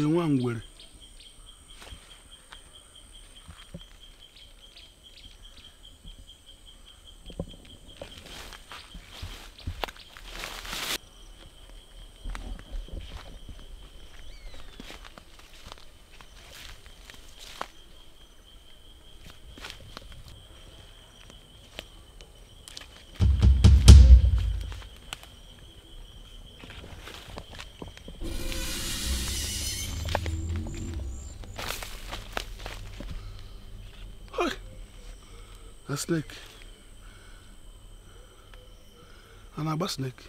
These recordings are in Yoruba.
ka one ngwere snake. An abba snake.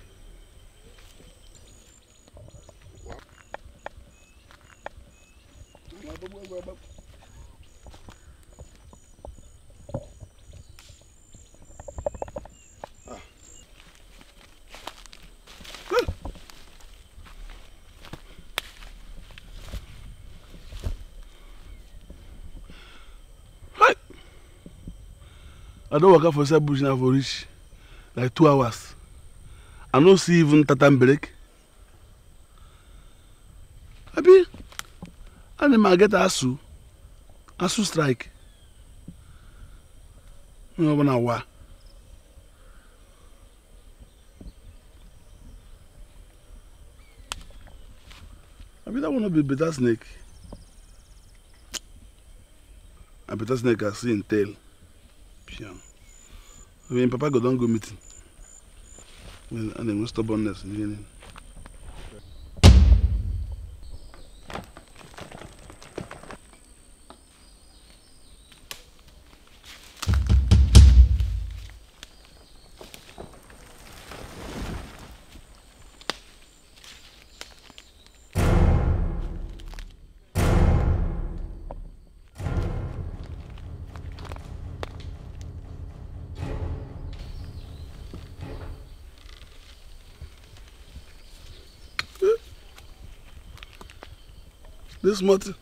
I don't work for inside bush now for reach like two hours. I don't see even tatam break. Abi, animal get asu, asu strike. No one know why. I Abi, that one not be better snake. A better snake I see in tail. Piano. I mean, Papa go don go meeting. and then stubbornness. You know? this morning.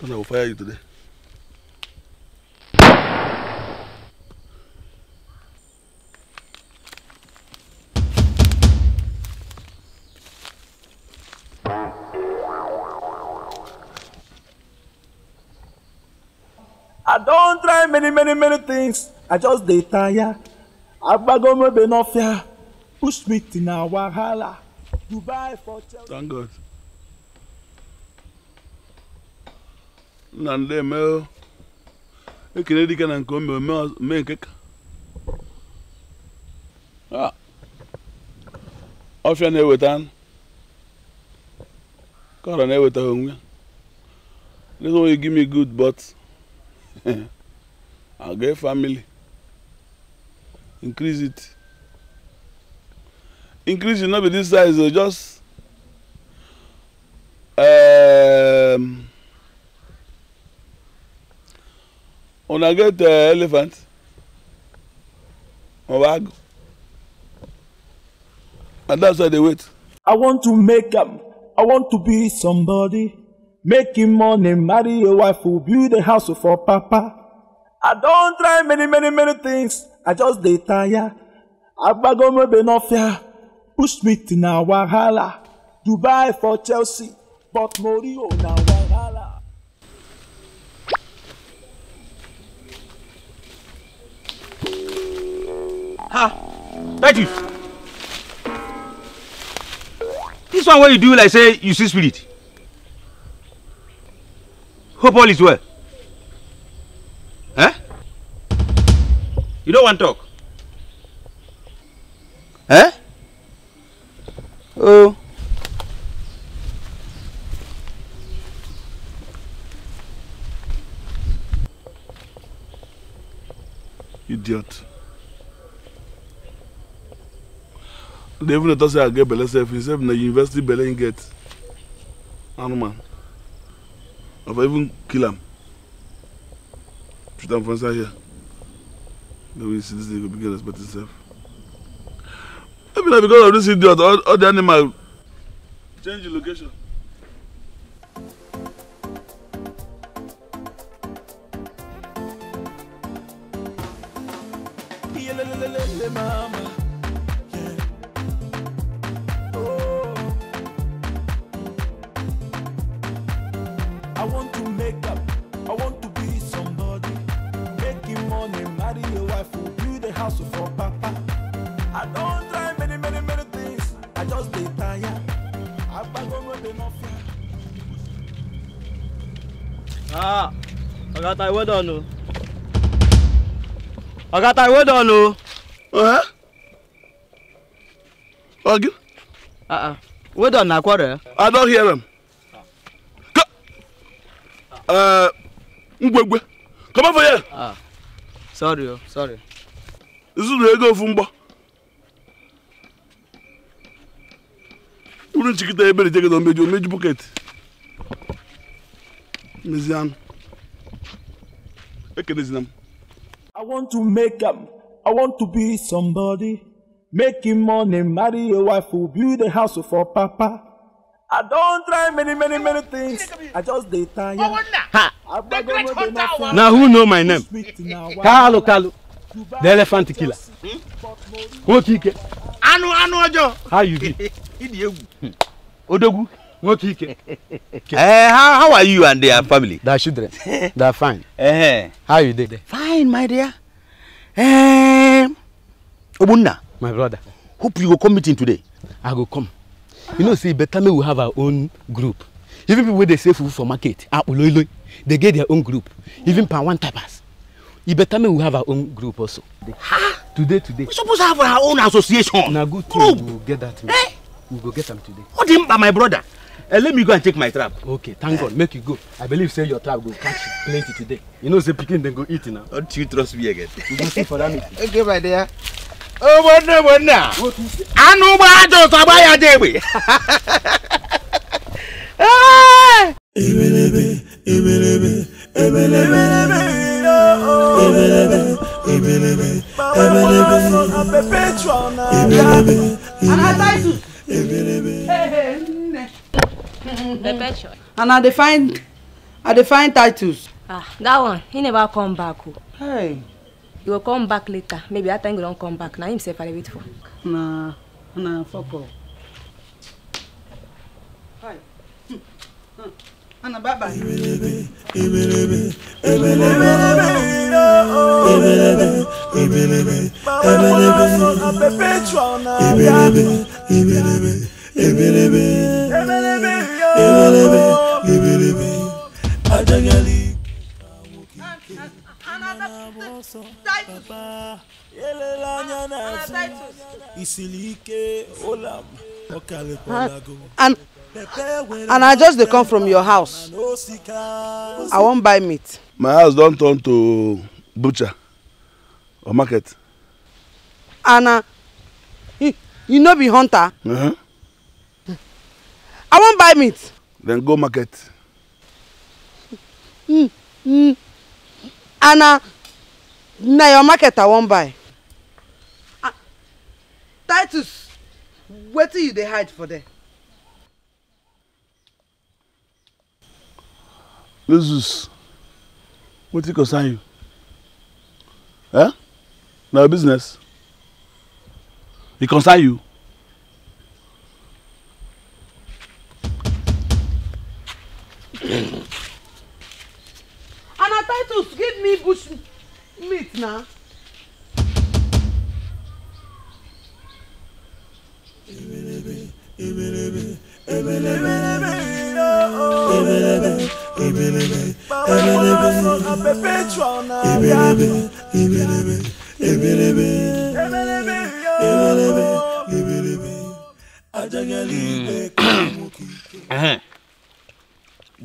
Then I will fire you today. I don try many many many things. I just dey tire. Agbagomobe no fear. Push me till na wahala. Dubai for Chelsea. Thank God. Nande ndị emeo ekele dike na nke omeo mee nke ka ọfịa na-eweta anụ kọrọ na-eweta onwe this one you give me good but I get family increase it increase should not be this size o oh, just um, una get uh, elephant or bag and that's why they wait. i want to make am i want to be somebody making money marry a wife who build a house for papa i don try many many many things i just dey tire agbagomebe no fear. Bushmeat na wahala, Dubai for Chelsea, but Mourinho na wahala. Ha! Thank you. This one what you do like say you see spirit. Hope all is well. Eh? You don't want talk? Eh? o. idiot dey even dey talk say i get belle sef sef na university belle im get animal i for even kill am put am for inside here. No, we see this nigga begin respect himself. I mean, because of this idiot, all, all the animal. change the location. Oh. I want to make up, I want to be somebody. Making money, marry a wife, build a house for papa. I don't Ah, ọ̀gá ta ìwé dọ̀nù. ọ̀gá ta ìwé dọ̀nù. a ìwé dọ̀nù na akwọrọ. I don't hear him. ngwegwe uh, come over here. Ah, sorry o oh, sorry. zụrụ ego ofu mgbọ. uru nchịkịta ebere jegede omeju omeju bọket. Mizian. Ekenezinam. I want to make am. I want to be somebody. Making money, marry a wife who build a house for papa. I don't try many many many things. I just dey tire. Ha! Now who know my name? Kalu Kalu, the elephant killer. Nwoke Ike. Anu, anụ ọjọọ. How you be? Hmm. Odogu. What weekend? uh, how, how are you and their family? Their children. they are fine. Uh-huh. How are you doing? Fine, my dear. Um, Obunna. My brother. Hope you go come meeting today. I go come. You know, see, better me we have our own group. Even people they sell food for market, ah, they get their own group. Even per one tapas. You better me we have our own group also. Ha! Today, today. We supposed to have our own association. Now, good thing. Oh. go get that. Eh? We'll go get them today. What him, by my brother? Uh, let me go and take my trap. Okay, thank God. Make you go. I believe say your trap will catch plenty today. You know say pikin then go eat now. Don't you trust me again? You go see for that meeting. Okay, my dear. Oh, wonder, wonder. Anu ba ajo saba ya dewe. Ebelebe, ebelebe, ebelebe, ebelebe, ebelebe, ebelebe, ebelebe, ebelebe. Another title. Ebelebe. Hey, hey. Mm-hmm. and i dey find i dey find titles. ah that one he never come back o. Oh. Hey. he go come back later maybe that time he don come back na him sef i dey wait for. na na fok o. Ana hmm. bye bye. Ebelebe, ebelebe, ebelebe, ebelebe, ebelebe, ebelebe, ebelebe, ebelebe ebelebe ebelebe ebelebe ajagali. Ah, and, and I just dey come from your house. I won't buy meat. My house don't turn to butcher or market. And you, you no be hunter. Uh -huh. I won't buy meat. Then go market. Mm, mm. Anna, now your market I won't buy. Uh, Titus, where do you they hide for there? Jesus, what you concern you? Eh? Now business. It concern you? na titus give me bush meat na. ebelebe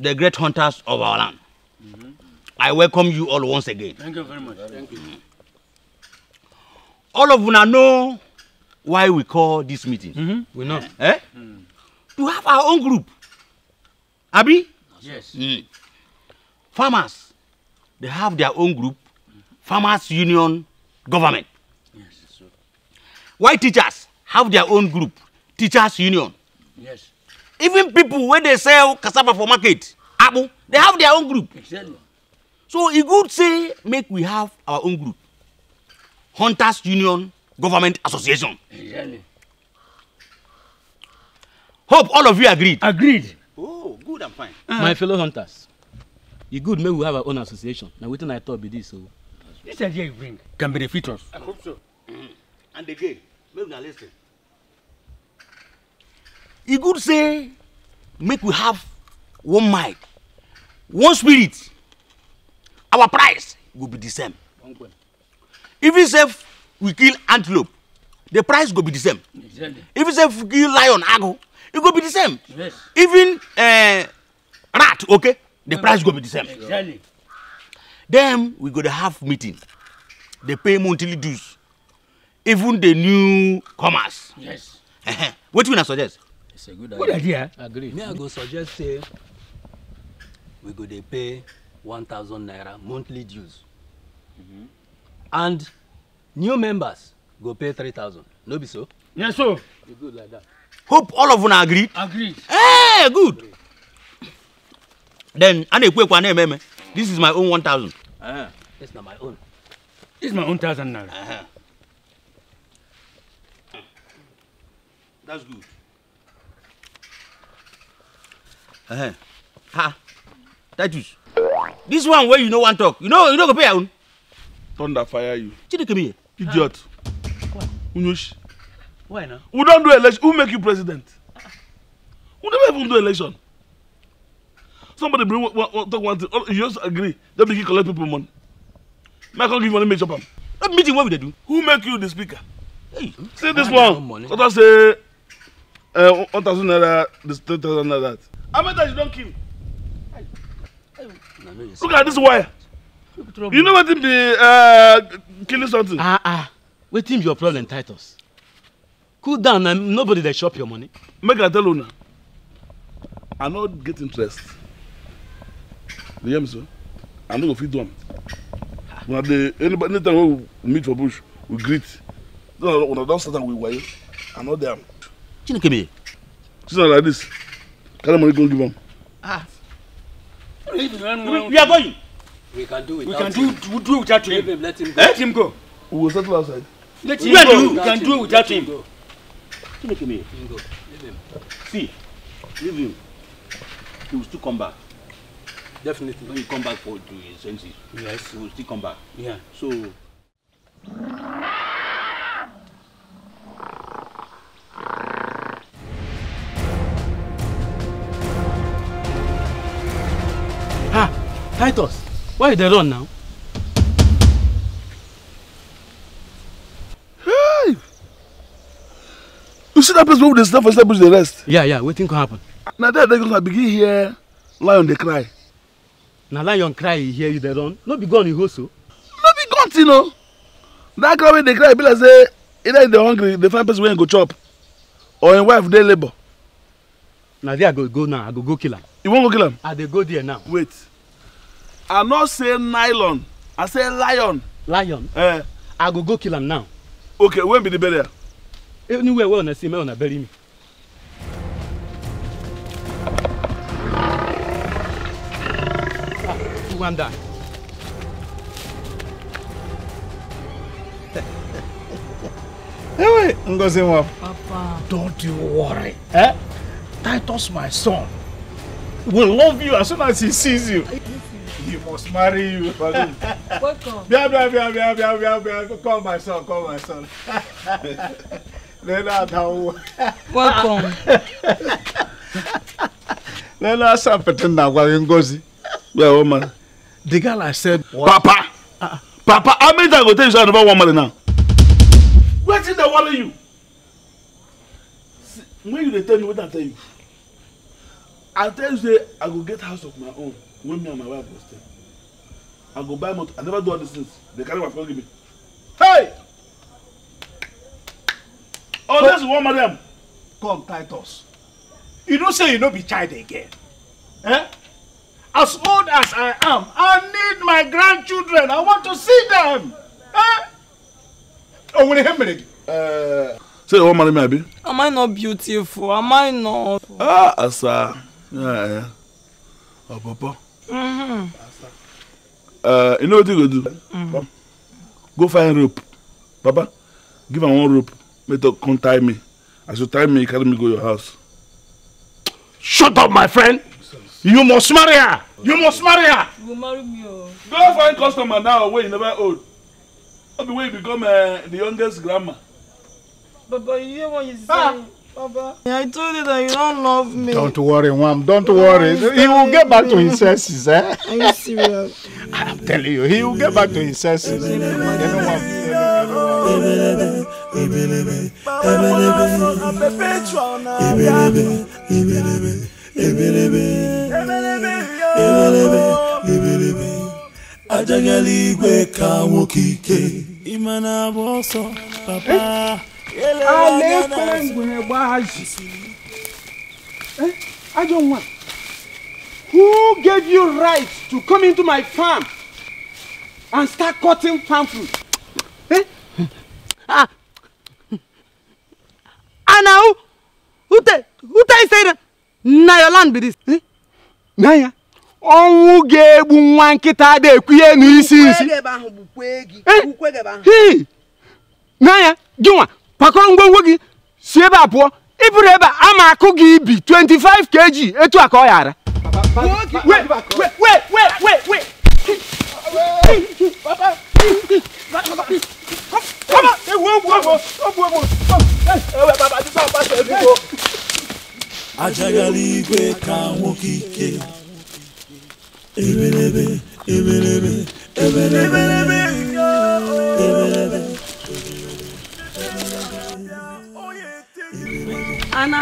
the great hunters of our land. Mm -hmm. I welcome you all once again. Thank you very much. Thank you. All of you know why we call this meeting. Mm -hmm. We know. Eh? eh? Mm. To have our own group. Abi? Yes. Mm. Farmers, they have their own group. Farmers Union Government. Yes, sir. Why teachers have their own group? Teachers Union. Yes. even people wey dey sell cassava for market akpu they have their own group exactly. so e good say make we have our own group hunters union government association exactly. hope all of you agreed. agreed. oh good and fine. Uh -huh. my fellow hunters e good make we have our own association na wetin i talk be this o. So. this idea you bring can benefit us. i hope so mm -hmm. and again make una lis ten e good say make we have one mind one spirit our price go be the same even if we kill antelope the price go be the same exactly. even if we kill lion ago e go be the same yes. even uh, rat okay the price go be the same exactly. then we go dey have meeting dey pay monthly dues even the new comers yes. wetin una suggest. It's a good idea. Good idea. Agree. Me, I go suggest say we go dey pay one thousand naira monthly dues. Mm -hmm. And new members go pay three thousand. No be so? Yes, so. You good like that. Hope all of una agree. Agreed. Hey, good. Agreed. Then, I ekwe one name, This is my own 1,000. Uh -huh. This not my own. This is my own thousand naira. Uh -huh. That's good. Uh-huh. Ha. Titus. This one where you no one talk. You know you no go pay own. Thunder fire you. come here? Idiot. Ah. Why? Unush. Why now? Who don't do election. Who make you president? Who never even do election. Somebody bring talk one thing. Oh, you just agree. They begin collect people money. Make I give money, make chop am. That meeting what we they do? Who make you the speaker? Hey, see this one. Others say uh, one thousand naira, this three thousand naira. How many times you don't kill? Look at this wire. You know what wetin be uh, killing something? Ah ah, wetin be your problem, Titus? Cool down na nobody that shop your money. Make a tell now. I not get interest. You hear me sir? I no go fit do When the anybody anytime we meet for bush, we greet. Una don start am with wayo, I no dey am. Chineke me. like this. Tell them we give them. Ah. We are going. We can do it. We can do do without him. Let him go. Let him go. We will settle outside. Let him go. We can do without him. him. me. See, leave him. He will still come back. Definitely. When he come back for the his senses, yes, he will still come back. Yeah. So. Titus, why you dey run now? Hey! You see that place where they stand for inside bush they rest? Yeah, yeah, wetin go happen? Na there they go begin hear lion dey cry. Na lion cry e hear you dey run? No be gun you hold so? Oh. No be gun you know. That cry wey dey cry be like say either they hungry, they find person wey go chop or im wife dey labour. Na there I go go now, I go go kill am. You wan go kill am? I dey go there now. Wait i no say nylon i say lion. lion eh. i go go kill am now. okay when be the burial. anywhere wey una see make una bury me. Rwanda. Ah, Ewe, Ngozi nwa. Papa. Don't you worry. Eh? Titus, my son, will love you as soon as he sees you. You must marry you. Welcome. Bia, bia, bia, bia, bia, bia, bia. Call my son, call my son. Leonard, how? Welcome. Leonard, I'm pretending I'm going to Yeah, woman. The girl I said, what? Papa! Uh, Papa, how many times I go tell you so I never want money now? Wetin dey worry you? See, when you dey tell me, what I tell you? I tell you say I go get house of my own when me and my wife was there, i go buy motor i never do all these things they carry my phone give me hey oh this one of them. come titus you don't say you don't be child again eh as old as i am i need my grandchildren i want to see them eh Oh, when ihe mere Uh. say you wan may I be? am i not beautiful am i not. ah asa Oh, Papa. Mm -hmm. uh, eh, you know what you go do? Mm -hmm. Go find rope. Papa. give her one rope. Make her come tie me. As you tie me, you carry me go your house. Shut up, my friend. You must marry her. You must marry her. You marry me. Go oh. find customer now where you never old. Not be way you become uh, the youngest grandma. But, you hear what you ah! say. Baba, I told you that you don't love me. Don't worry, Wam. Don't worry. He will get back to his senses, eh? Are you serious? I'm telling you, he will get back to his senses. You igwe ka nwoke ike. Ị ma na-agba alekpere ngwere gbaji I don't want. Who gave you right to come into my farm and start cutting farm fruit? Eh? Ah. Anahu, who tell who tell you say that? Na your land be this. Eh? Na ya. Ọnwụ ga-egbu nwa nkịta ada ekwu n'isi isi. Ukwe gị ebe ahụ eh? bụ ukwe gị. Ukwe gị ebe ahụ. Na ya, gị pakọrọ ngwongwo gị si ebe a pụọ ebe a ma akụ gị ibi 25 kg etu a ka ọ igwe ka nwoke ike Anna,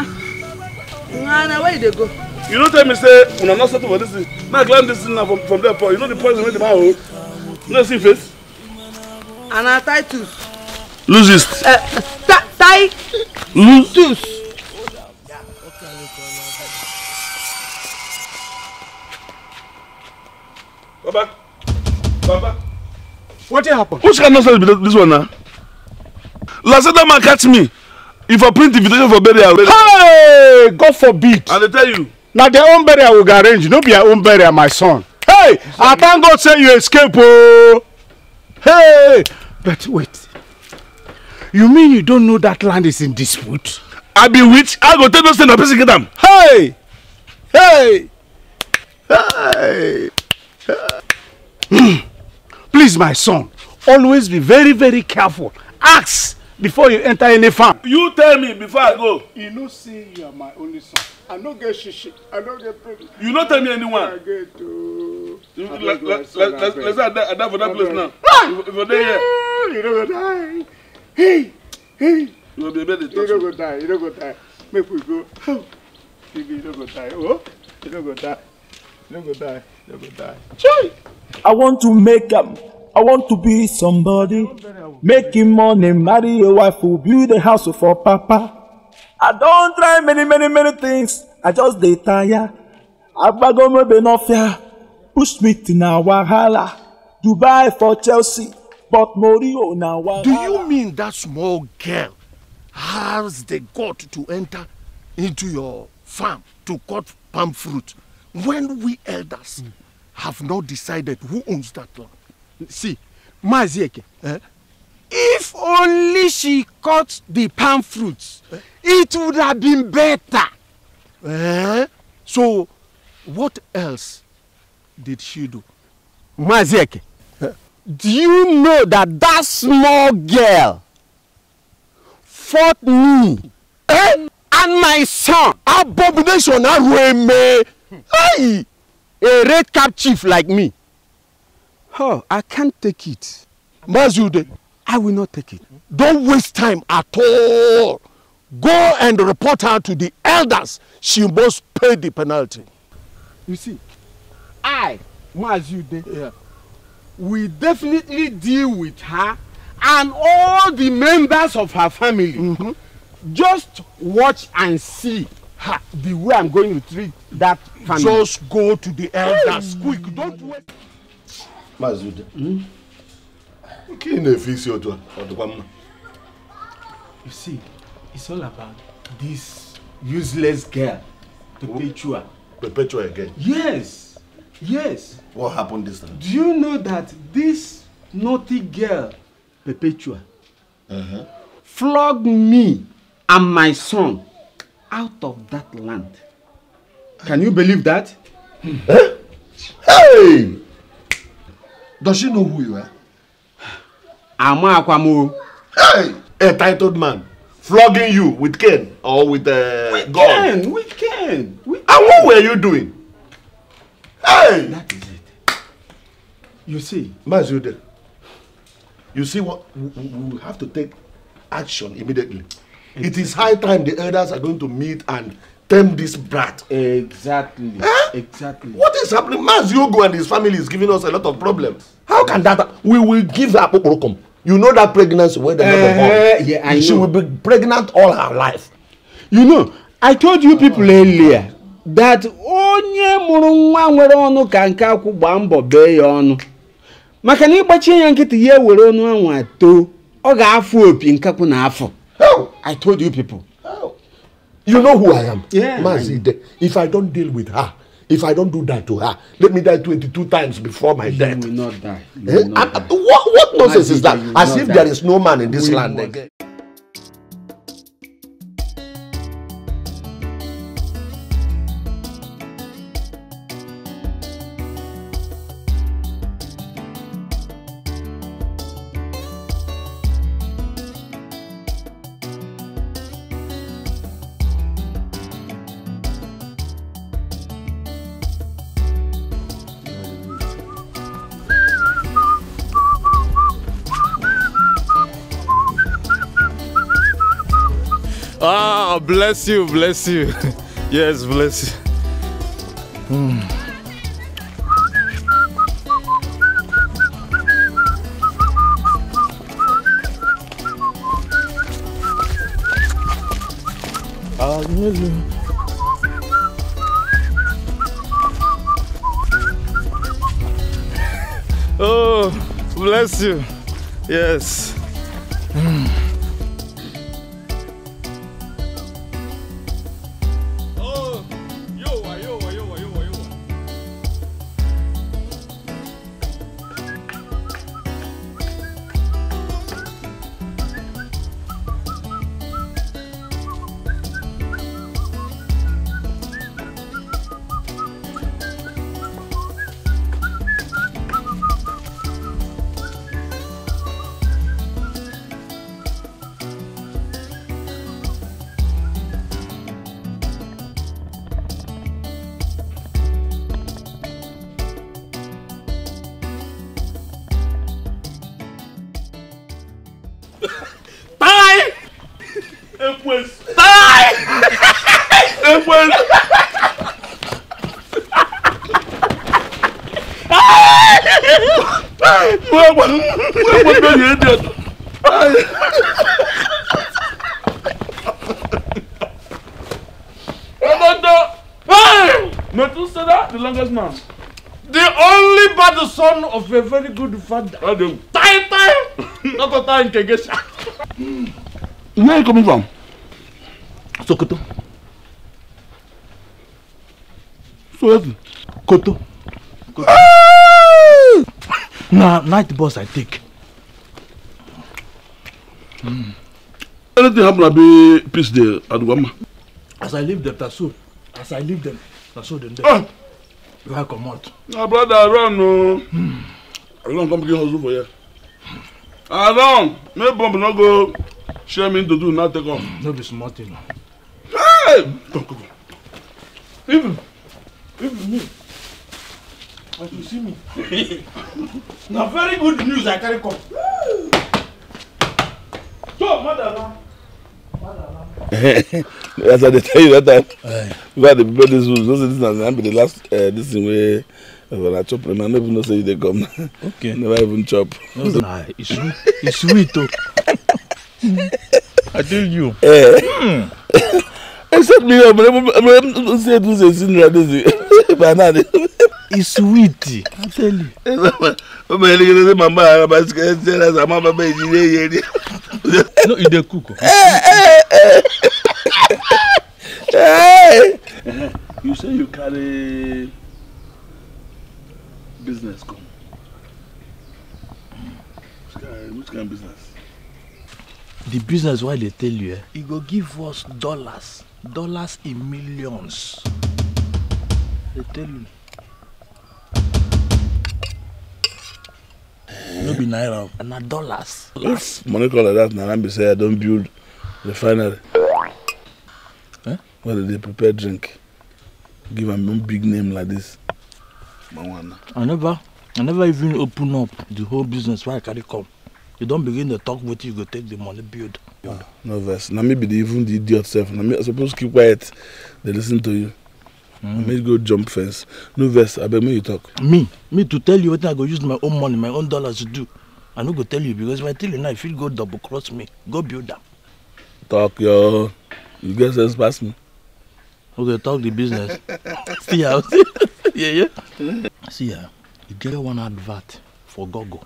Anna, where they go? You don't tell me, say, when I'm not settled for this thing. Now climb this thing now from, from there, you know the poison with the man hold? You know, see face? Anna, tie tooth. Titus. Losist. Uh, eh, Titus. Losist. Baba. Baba. What happened? Which kind of nonsense this one now? Lazada man catch me if I print invitation for burial. hey God forbid. i dey tell you. na their own burial we go arrange no be our own burial my son. hey i thank God say you escape ooo. Oh. hey but wait you mean you don't know that land is in dispute. i be witch i go tell those things na person get am. hey hey. hey. please my son always be very very careful ask before you enter any farm. you tell me before i go. you know see, you are my only son i don't get shishi i don't get problem. you no tell me anyone. i get ooo. let's let's that for that place now. if you dey here. you don't go die. hey hey. you go be able to touch you no go die you don't go die make we go. baby you don't go die oh you don't go die you no go die you no go die. chai. i want to make them. Um, I want to be somebody. Making money, marry a wife who build a house for papa. I don't try many many many things. I just dey tire. Agbagomebe no fear. Push me to na wahala. Dubai for Chelsea, but Morio na wahala. Do you mean that small girl has the gut to enter into your farm to cut palm fruit when we elders mm. have not decided who owns that land? see maazi eke eh? if only she cut the palm fruit eh? it would have been better eh? so what else did she do maazi eke eh? do you know that that small girl fought me eh? and my son abomination arueme hey a red cap chief like me Oh, I can't take it. Mazude, I will not take it. Don't waste time at all. Go and report her to the elders. She must pay the penalty. You see, I, Mazude, yeah. we definitely deal with her and all the members of her family. Mm -hmm. Just watch and see her, the way I'm going to treat that family. Just go to the elders. Hey. Quick, don't wait. Mazude. Ude. Nke ị na-efe isi otu You see, it's all about this useless girl, Perpetua. Perpetua again? Yes, yes. What happened this time? Do you know that this naughty girl, Perpetua, uh -huh. flogged me and my son out of that land? Can you believe that? Hey! Does she know who you are? I'm Akwamo. Hey, a titled man flogging you with cane or with uh, we God. Can, we can, we And what were you doing? Hey! That is it. You see. Mazude, you see what? We have to take action immediately. Exactly. It is high time the elders are going to meet and term this brat. Exactly. Eh? Exactly. What is happening? Maz Yogo and his family is giving us a lot of problems. How can that we will give her Apokorokom. You know that pregnancy when they uh, uh-huh. born. Yeah, she will be pregnant all her life. You know, I told you people oh. earlier that onye mụrụ nwa nwere ọnụ ka nke akwụ gbaa mbọ bee ya ọnụ maka na ịgbachie ya nkịtị ya ewere ọnụ anwa too ọ ga-afụ opi nkakwụ na afọ I told you people you know who i am yeah, mazi de if i don deal with her if i don do that to her let me die twenty-two times before my you death will not die. You eh? will not die. what what nonsense is that as if die. there is no man in this we land again. bless you, bless you. yes, bless you. Mm. Oh, bless you. Yes. of a very good father. Adam. Tai tai! Not a time to Where are you coming from? Sokoto. Sokoto. Koto. Koto. na night bus I take. Mm. Anything happen, I be peace there, at Wama. As I leave them, that's so. As I leave them, that's so then. There. Ah. Where I come out. My brother, run, no. Oh. Mm. I don't come begin hustle for you. I don't. make bomb no go share me to do not take off. No be small thing. Hey, come come. Even, even me. As you see me. Na very good news I carry come. So, madam. As I tell you that time, uh, we had to prepare this room. this is not the last uh, this thing where When I chop, I never know say they come. Okay. never even chop. No, nah, it's It's sweet too. I tell you. Eh. Mm. Except me, I'm not saying this is in reality. Banana. It's sweet. I tell you. Mama, you know, mama, I'm not scared. I'm not baby. No, you dey cook. Oh. Eh, eh, eh. eh, You say you carry business come? Which kind, which kind of business? The business why they tell you, eh? It e go give us dollars, dollars in millions. They tell you. No be naira, na dollars. If money call like that, na be say I don't build refinery. Eh? Well, they prepare drink. Give a big name like this. I never, I never even open up the whole business where I carry come. You don't begin to talk what you go take the money build. Ah, no verse. Now maybe they even the idiot self. Now I suppose keep quiet. They listen to you. Mm. I may go jump fence. No verse. I beg me you talk. Me, me to tell you what I go use my own money, my own dollars to do. I no go tell you because if I tell you now, if you go double cross me, go build them. Talk your, you get sense pass me we they talk the business see how yeah yeah mm. see ah e get one advert for Gogo.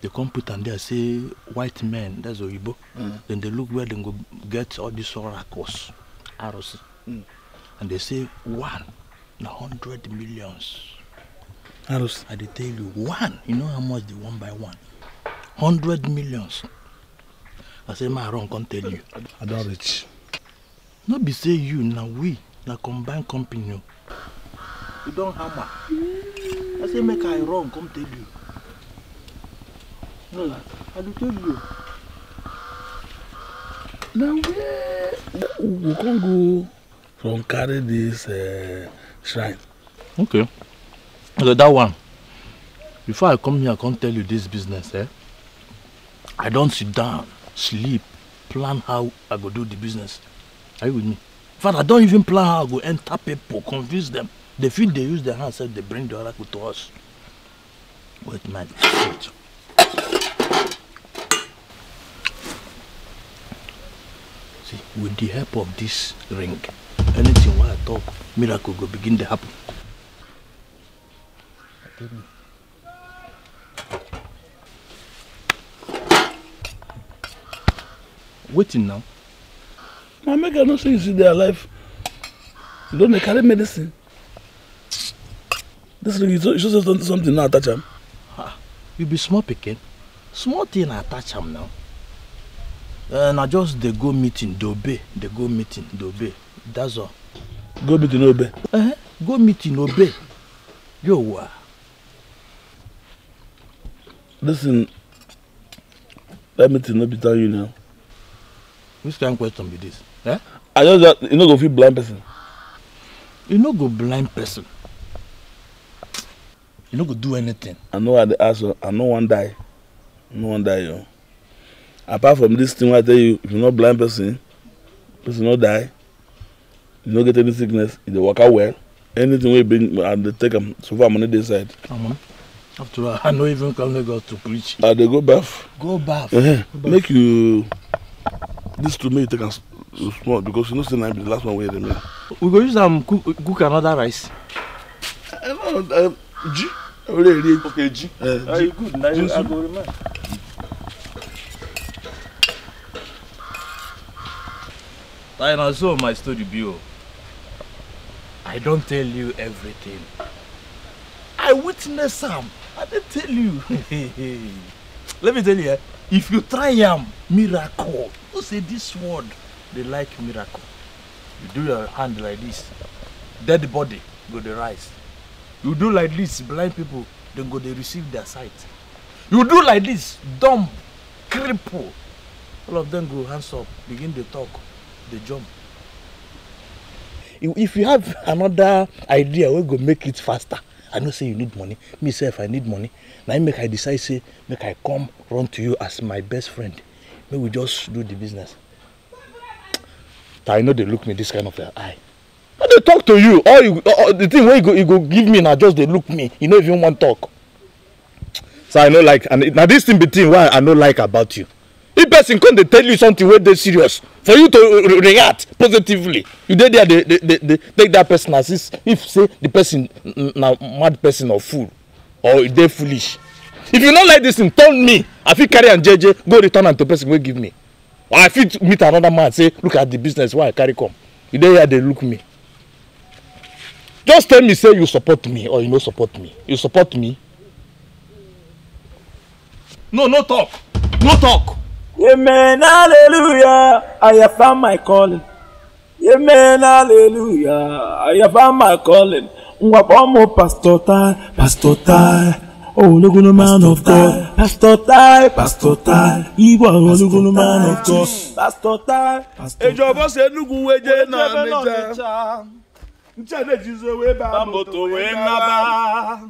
they come put am there say white men that's oyibo mm. then they look where they go get all these oracles arrows mm. and they say one a hundred millions arrows i dey tell you one you know how much the one by one hundred millions i say my wrong. Can't tell you i don't reach no be say you na we na combine company o you don hammer i say make i run come tell you no i dey tell you na where we come go from carry this uh, shrine. okay So that one before i come here i come tell you this business eh i don sit down sleep plan how i go do the business. Are you with me? Father, don't even plan how I go enter people, confuse them. They feel they use their hands, they bring the oracle to us. Wait, man. Wait. See, with the help of this ring, anything while I talk, miracle will begin to happen. Waiting now. na make i know say you still dey alive you don carry medicine This ring you show say something now attach am you be small picking, small thing attach him now eh, na just they go meeting dey obey dey go meeting dey obey that's all go meeting no Uh eh, huh. go meeting obey yowa listen that meeting no be tell you now which kind question be this eh? i just that you know go fit blind person you know go blind person you know go do anything i know i dey ask you i know one die no one die yo. apart from this thing i tell you if you not blind person person not die you no get any sickness you e dey waka well anything we e bring and they take them so far money dey inside. Um, after all i know even come go to preach. i they go bath? go bath. Eh, uh -huh. go baff. make you. This two make take am small because you know say na be the last one wey remain. we go use am um, cook cook another rice. i no know ji ore eri okay ji eh, ji good na i go remind. I know so my story be o i don't tell you everything i witness am i dey tell you let me tell you eh if you try am miracle know say this word, they like miracle you do your hand like this dead body go the rise you do like this blind people then go they receive their sight you do like this dumb cripple all of them go hands up begin dey talk they jump. if you have another idea we go make it faster i know say you need money me say if i need money na make i decide say make i come run to you as my best friend make we just do the business I know they look me this kind of eye i dey talk to you all you all, the thing wey you go you go give me na just dey look me you no even wan talk so i no like and na this thing be thing wey i no like about you if person come dey tell you something wey dey serious for you to react positively you dey there dey dey dey take that person as if if say the person na mad person or fool or e dey foolish if you no like this thing turn me i fit carry am jeje go return am to person wey give me or i fit meet another man say look at the business wey i carry come you dey here dey look me just tell me say you support me or you no support me you support me. no no talk no talk. amen hallelujah i have found my calling amen hallelujah i have found my calling ngwakpọ mụ pastor tai pastor tai ológun man of God pastor tai pastor tai ìwọ ológun man of God pastor tai. ìjọba ṣe nugun weje náà níjà nchade jizo wee ba moto wee naba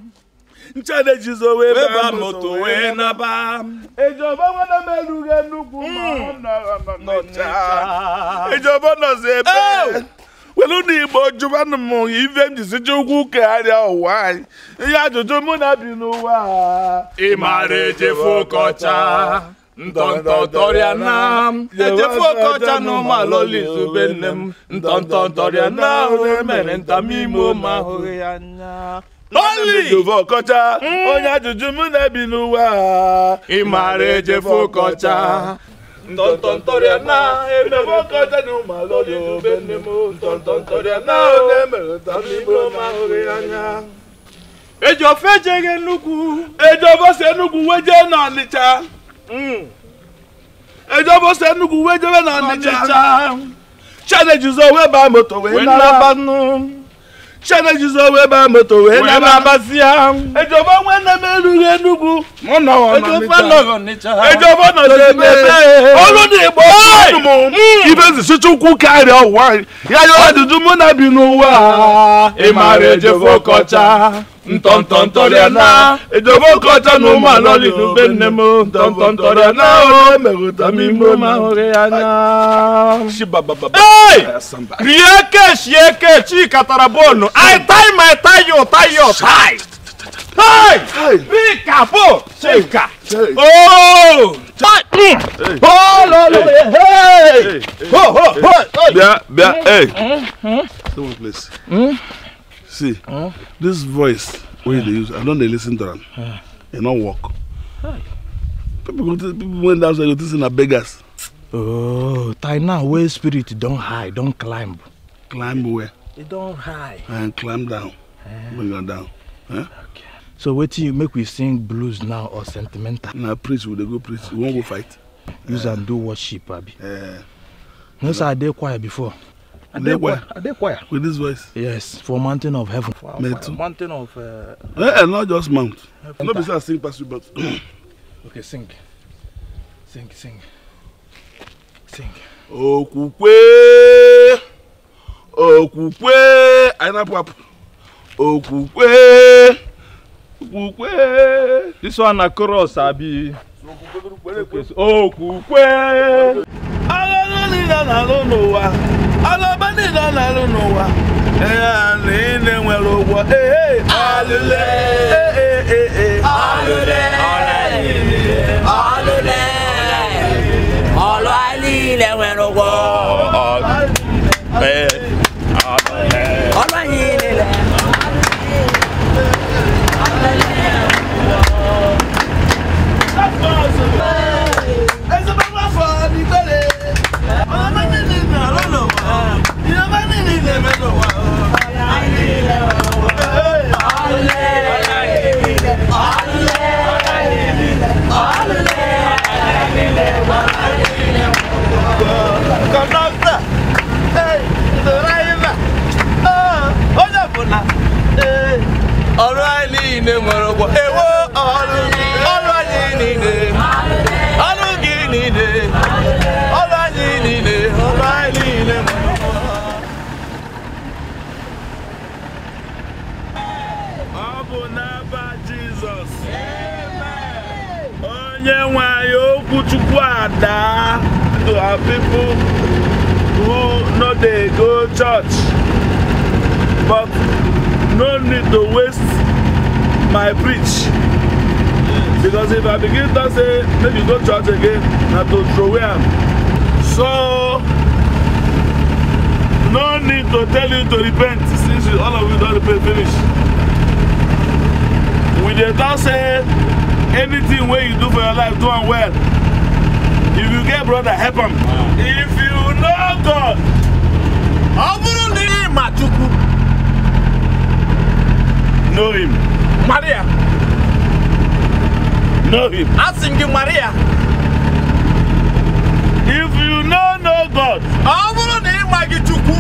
nchade jizo wee ba moto wee naba. ìjọba wọn náà mẹ́rù ẹnu kù mọ́ ọ̀nà ọ̀nà níjà ìjọba ṣe bẹ́ẹ̀. were na igbo jụbanụ m ife m jisije ugwu kegharịa ụwa anyị ihe ajụjụ mụ na bi n'ụwa ịmara ejefu ọkọcha na m ejefu ọkọcha na ụmụalọla izube nne m ntọntọ tọrịa na ahụ mere ntamime ụmụ ya anya onye ajụjụ mụ na bi n'ụwa ọkọcha ntọntọntọrịa na emere ọkọchị na ụmụ alọrị obe nne m ntọntọntọrịa na oge emere ta n'ime ụmụ ahụghị anya eji ofe ejeghị nnukwu eji obosi enugwu weje na ọnịcha mm. eji obosi enugwu wejebe na ọnịcha chanejizo wee baa moto wee nara banụ shana jizo we ba moto we na ba basia ejo ba we na me lu re nugu mo na wa ma mi ta ejo fa lo ni cha ejo ba na se be be olu ni bo wa hmm. ya yo ntọ̀ntọ̀ntọ̀rẹ̀ ẹ̀ná ìjọba kọjá ní ọmọ àlọ́lì ló gbé ní mo ntọ̀ntọ̀ntọ̀rẹ̀ o mẹ̀rọ̀tà mi mo máa ń rẹ̀ ẹ̀ná. rieke sieke chi katara bọ́ọ̀nù àìtáì mà táyì ò táyì ò táì. bíkà bò ṣe kà ooo bia bia hey mm-hmm. someone please. Mm? See, huh? this voice wey they use, I don't they listen to them. Huh. They don't work. Hi. People, people went outside, you think na beggars. Oh, time now. where spirit don't high. don't climb. Climb where? It e don't high. And climb down. Uh, Bring her down. Huh? Eh? Okay. So wait you make we sing blues now or sentimental. Now nah, preach, we they go preach. Okay. We won't go fight. Use uh, eh. and do worship, Abby. Uh, no, sir, I did choir before. Adequire. With this voice? Yes, for mountain of heaven. For Mountain of. Uh, yeah, and eh, not just mount. Heaven. No, because I sing past you, but. okay, sing. Sing, sing. Sing. Okukwe. Okukwe. Ainapap. Okukwe. Okukwe. This one a chorus, Abi. Okukwe. Okukwe. agha niile na-alụ n'ụwa alaba niile na-alụ n'ụwa niile nwere ụgwọ ee ọlụ niile nwere ụgwọ ọlụ awesome! alright anyị alright Maranatha Jesus. Amen. Onye nwe anyị okwu Chukwu ada to our who no dey go church but no need to waste my preach because if I begin to say make you go church again na to throw away am so no need to tell you to repent since all of you don repent finish. We just don't say anything where you do for your life, do it well. If you get brother, help him. If you know God, Obuluni Machuku. Know him. Maria. Know him. Asking you, Maria. If you know no God, Obuluni Machuku.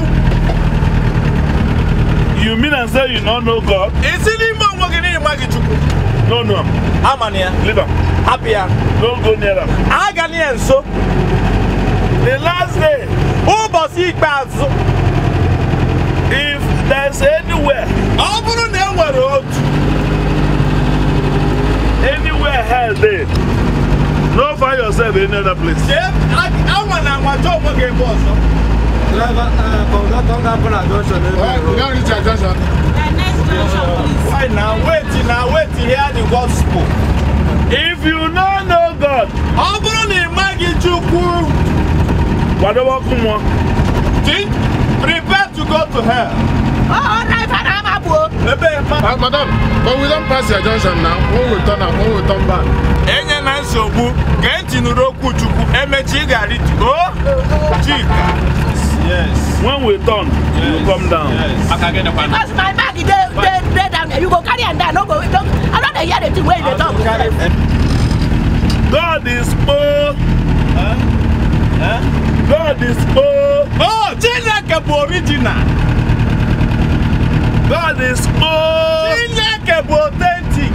You mean and say you don't know God? Isn't nwa chukwu n'ọnụ amana ya hapụ ya agala ya nso the last day ụbọchị ikpeazụ if there's anywhere ọ bụrụ na e nwere otu anywhere hell dey no find yourself in another place. anwa na anwa chọọ onwe gị ebe ọzọ. Driver, uh, from that Tonga Pula Junction. Why now? Wait now, wait to hear the gospel. If you no know God, ọ bụrụ na ị maghị Chukwu, kwadobe ọkụ mmụọ. Think, prepare to go to hell. Oh, oh right, I'm a boy. Uh, madam, but we don't pass your junction now. When we turn up, when we turn back. Enye na nsogbu, ka ntị nụrụ okwu Chukwu, emechi ị ga-arịtu. Oh, Chika. Yes. When we turn, yes. you come down. Yes. Because my and you go carry am down no go wait i no hear the thing wey you talk. God is poor. Huh? Huh? God is poor. Oh, Chineke bụ original. God is poor. Chineke bụ authentic.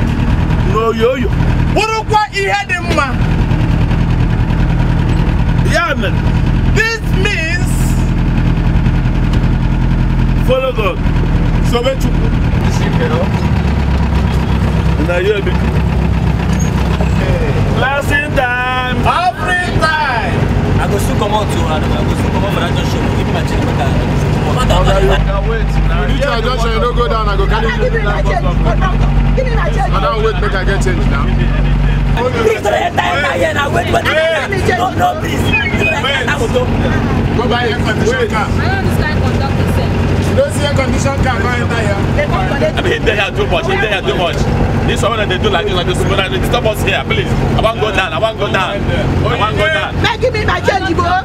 No, yo, N'oyoyo. Bụrụkwa ihe dị mma. Ya mere. This means. Follow God. So Sobe Chukwu. Na you be. Blessing time. Every time. I go soon come out to her. I go soon come out for that junction. Give me my check back. I can wait. You reach our junction, you don't go down. I go carry you. Give me my I Give me my change. Madam, wait, make I get change now. Please, don't enter here now. Wait, wait. No, no, please. Go buy air conditioner car. I don't understand conduct air condition car can't enter here. I mean, they are too much. They are too much. This woman, they do like this, like this, like this. Stop us here, please. I want to go down. I want to go down. I want to go down. Now give me my change, bro. I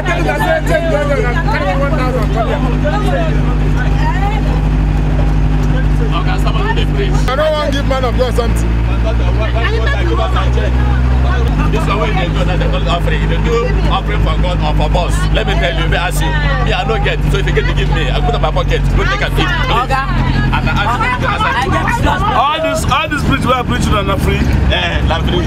think that's it. Take one thousand. Come here. Okay, someone give me. I don't want to give man of God something. This is why they do that, they call it offering. They do offering for God or for boss. Let me tell you, if I ask you, me, I don't get. So if you get to give me, I put it in my pocket. Go take a seat. And I ask you, I ask you. All this, all this preach we are preaching are not free. Eh, not free.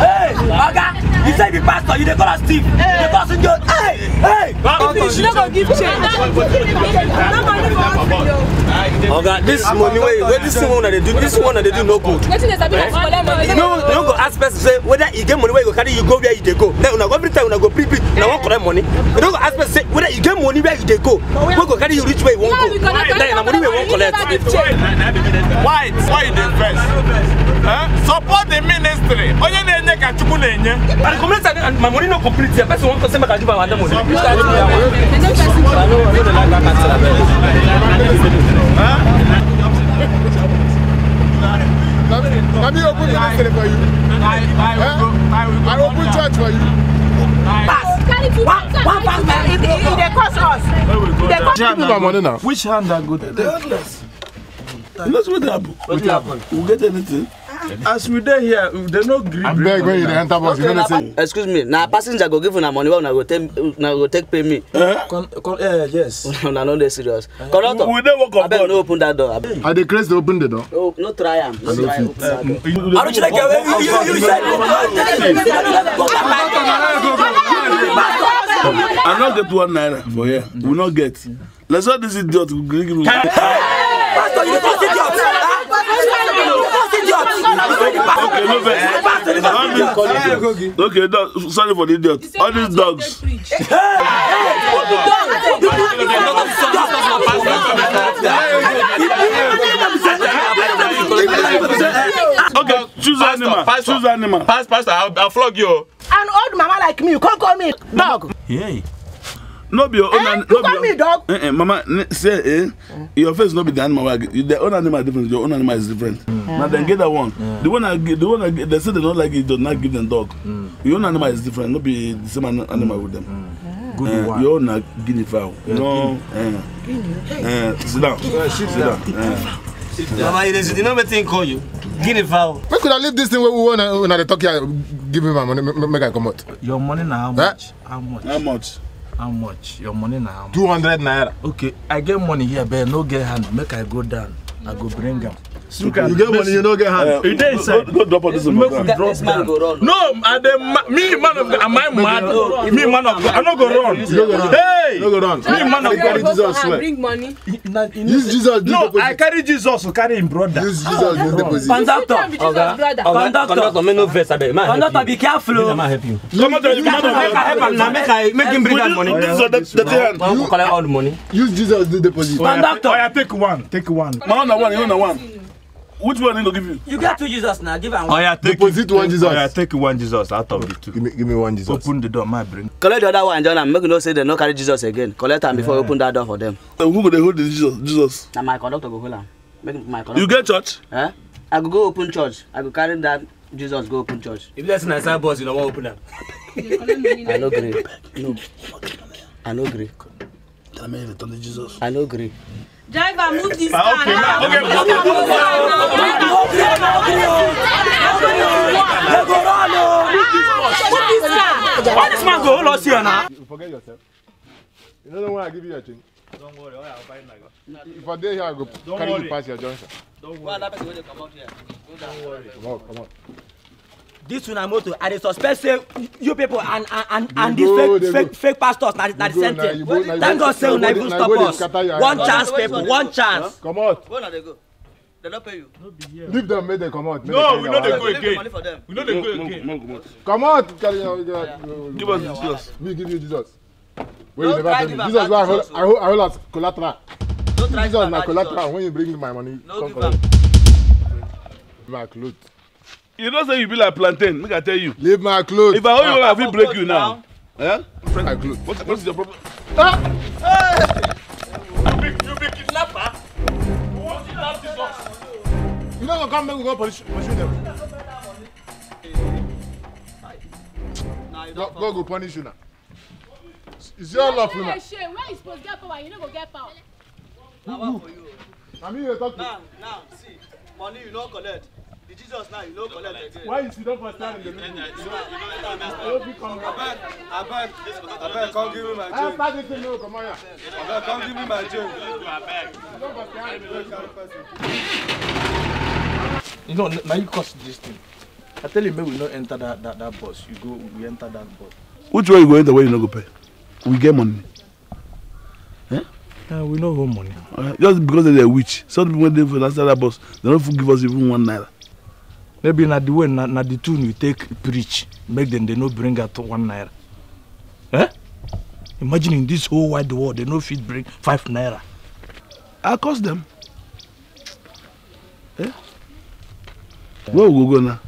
Hey, Oga you say the pastor you dey call am steve you dey call am sunjo hey hey. if you no go give change no money for hospital. oga this money wey wey dis thing wey una dey do This one wey una dey do no good. wetin dey sabi na collect money. no no go ask person say whether e get money wey you go carry you go where you dey go then una go every time una go pre pre una wan collect money you no go ask person say whether you get money where you dey go wey go carry you reach where you wan go then na money wey you wan collect. why why you dey vex. support the ministry onye na-enye ka chukwu na-enye. I complete and my money not complete. The person wants to say, I give my money. Let me open the next for you. I open church for you. Pass. One, one pass, man. It, it, it cost us. It cost us. Give me my money now. Which hand are good? The handless. That's what happened. What happened? We'll get anything as we dey here they no gree bring abeg when you dey enter bus you know say. excuse me na passenger go give una money wey una go take una go take pay me. con con yes. una no dey serious. conductor we dey work on board abeg no open that door abeg. i dey craze to open the door. no no try am no try open that door. aruchileke wey you you said you go back. i no get one naira for here we no get let's all this idiot go gree give me. pastor you dey talk idiot. Okay, no vex. Okay, dog. Sorry for the idiot. All these dogs. Okay, choose animal. Pastor, choose animal. Pastor, I'll, I'll flog you. An old mama like me, you can't call me dog. Yeah no be una eh, no be me dog eh, eh, mama say eh, mm. your face not be the animal the own animal is different your own animal is different mm. yeah. na dem get that one yeah. the one i the one i they say they don't like it do not give them dog mm. your own animal is different Not be the same animal with them. Mm. Good uh, eh, one. You're not guinea fowl. Yeah. No. Uh, uh, sit down. Uh, sit down. Uh. Mama, you know wetin call you? Guinea fowl. Where could I leave this thing Where we wan una dey talk here. Give me my money make I come out. Your money now. how much? Eh? How much? How much? How much? Your money now? 200 naira. Okay, I get money here, but no get hand. Make I go down. I go bring them. Look at you get money, you don't get hand. Uh, you it is no, drop on this make we man. No, I the me man of am I mad? me man of I no go run. You go run. Hey, no go run. Me man of God, Jesus swear. Bring money. Use Jesus. No, I carry Jesus to carry him brother. Use Jesus ah, in deposit. Conductor, conductor, conductor. Me no vex abeg. Conductor, be careful. Oh. Let me help you. Come on, come on. Make I help am now. Make I make him bring that money. This is the thing. You collect all the money. Use Jesus in deposit. Conductor, I oh, oh, take one. Take one. Man, one. You know one. Which one you go give you? You get two Jesus now. Give am one. yeah, take Deposit one Jesus. Oya take one Jesus out of the two. Give me, give me one Jesus. Open the door, my brain. Collect the other one, John, and make no say they no carry Jesus again. Collect am before you open that door for them. Uh, who go dey hold the Jesus? Jesus. Na my conductor go hold him. Make my conductor. You get church? Huh? Eh? I go go open church. I go carry that Jesus go open church. If that's na side boss, you no wan open them. I know gree. No. I know gree. Tell me return to Jesus. I know gree. Driver, move this ah, car. Okay, now. Okay, move this car. Move this car. Move this car. Move this car. Why this man go all lost here now? You forget yourself. You know the one I give you your change. Don't worry, I'll buy it If I dare here, I go Don't carry worry. you past your junction. Don't worry. come on, Come on. This una motor i dey suspect say you people and and and these fake fake fake pastors na the same thing thank god say una even stop us one chance people one chance. comot. where no leave dem make dem comot. no we no dey go again we no dey go again. comot carry give us jesus. we give you jesus. wey you never tell me jesus na i hold oh. as collateral. jesus na collateral when you bring my money come collect. my cloth you know say you be like plantain make i tell you. leave my cloth. if i hold you well ah, i fit break you now. now. Eh? leave my cloth. what, what is your problem. Ah! Hey! you be you be kidnapper. You want you to have this box. you no go come make we go pursue them. God go punish you now. Is your love for me? Where you supposed get power, you no go get power. Na one for you. Na you talk to. Now, now, see, money you no collect be Jesus now, you no collect again. Why you sit not for in the middle? You don't understand. You fit come back. Abeg, abeg, come give me my joke. I start this thing now, come on here. Abeg, give me my You don't You don't You know, now you cause this thing. I tell you, make we not enter that, that, that bus. You go, we enter that bus. Which way you go enter way you no go pay? We get money. Eh? Uh, we no go money. Uh, just because they're a witch. Some people went there for that bus, they don't give us even one naira maybe na the way na, na the tune you take preach make them they no bring out one naira eh? imagine in this whole wide world they no fit bring five naira i cost them eh? where we go go now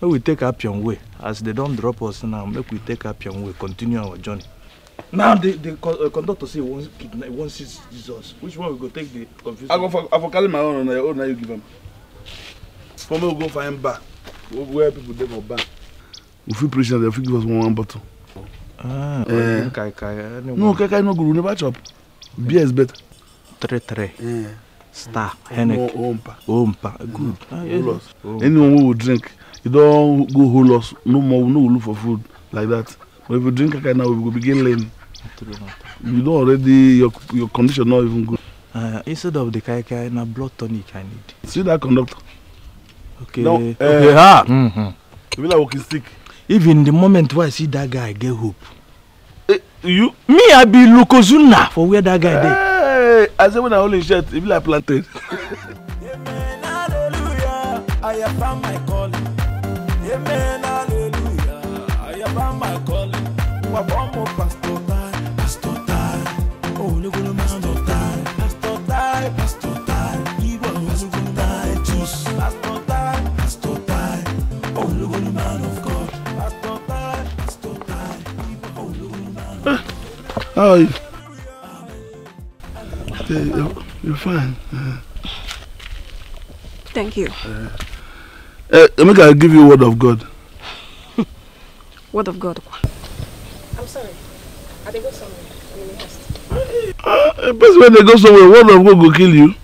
make we take appian way as they don drop us now make we take appian way continue our journey now the the uh, conductor say one kidnap one six jesus which one we go take the confusion? i go for i for carry my own na your own na you give am for me we go find bar where people dey for bar we fit preach na dem fit give us one one bottle. ah uh, kai kai no kai kai no good we never chop beer is better. three three. Yeah. star hennick ompa ompa good. Ah, yes. anyone wey we drink you don go hold us no more we no go look for food like that but if you drink kai kai now we go begin learn. you don already your your condition no even good. Uh, instead of the kai kai na blood tonic i need. see that conductor okay No. uh, okay eh, Ha. mm -hmm. you mean like walking stick. even the moment wey i see that guy i get hope. Eh, you. me i be lukozuna for where that guy dey. Hey, i say when i hold him shirt e be like plantain. amen hallelujah i have found my calling amen hallelujah i have found my calling. How oh, are you? You're, you're fine. Uh, Thank you. Uh, uh, Emeka, i give you word of God. word of God? I'm sorry. I they go somewhere. I'm in the uh, when they go somewhere, word of God will kill you.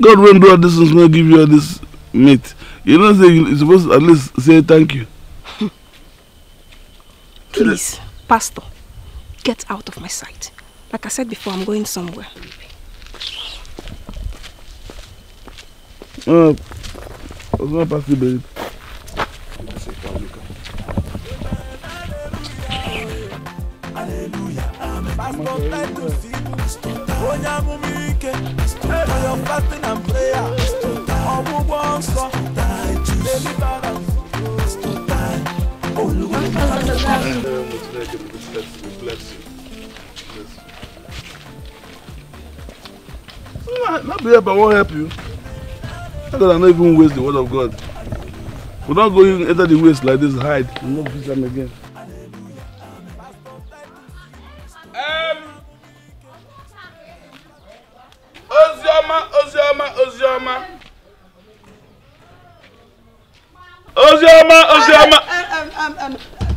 God won't do all this and will give you all this meat. You know, say you're supposed to at least say thank you. Please, Pastor. Get out of my sight. Like I said before, I'm going somewhere. Uh, it's not possible. Bless you, bless you. Bless Not, ah, not be help, I won't help you. How can I'm not even waste the word of God? We're not going enter the waste like this, hide. We not visit them again. Um, Ozioma, Ozioma, Ozioma. Ozioma, Ozioma. Um, um, um, um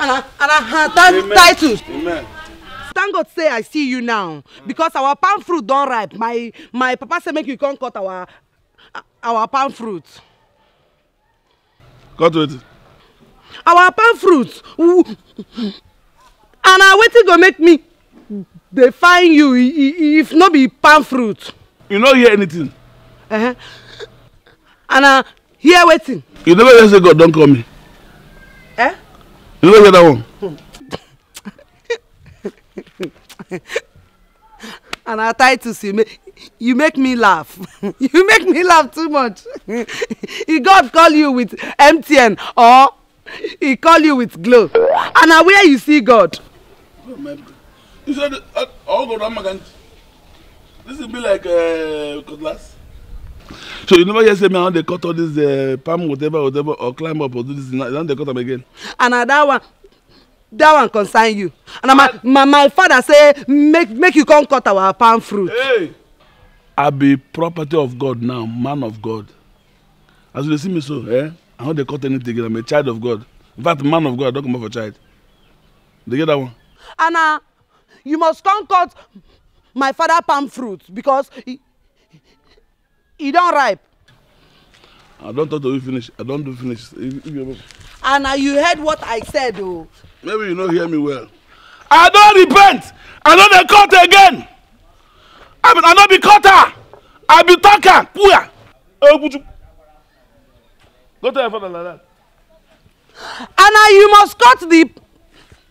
and I, and I had that Amen. Thank God say I see you now because our palm fruit don ripe. My my papa say make you come cut our our palm fruit. Cut wetin? Our palm fruit. And na wetin go make me dey find you if no be palm fruit. You no hear anything? Uh -huh. And I hear wetin? You never hear say God don call me ló that one, and our titles you make you make me laugh you make me laugh too much if God call you with MTN or he call you with glow and na where you see God. you said all go round my country this be like uh, cutlass. So you never hear say me I they cut all this uh, palm whatever whatever or climb up or do this now they cut them again. And uh, that one that one concern you. And my, my my father say make make you come cut our palm fruit. Hey. I be property of God now, man of God. As you see me so, eh? I know they cut anything again. I'm a child of God. In fact, man of God, I don't come up for child. They get that one. Anna, you must come cut my father palm fruit because he, e don ripe. i don talk to you finish i don do finish and na you heard what i said o. Oh. maybe you no hear me well. i don repent i no dey cut again i mean i no be cutter i be talker puya. eguju eh, go tell your father like that. and na you must cut the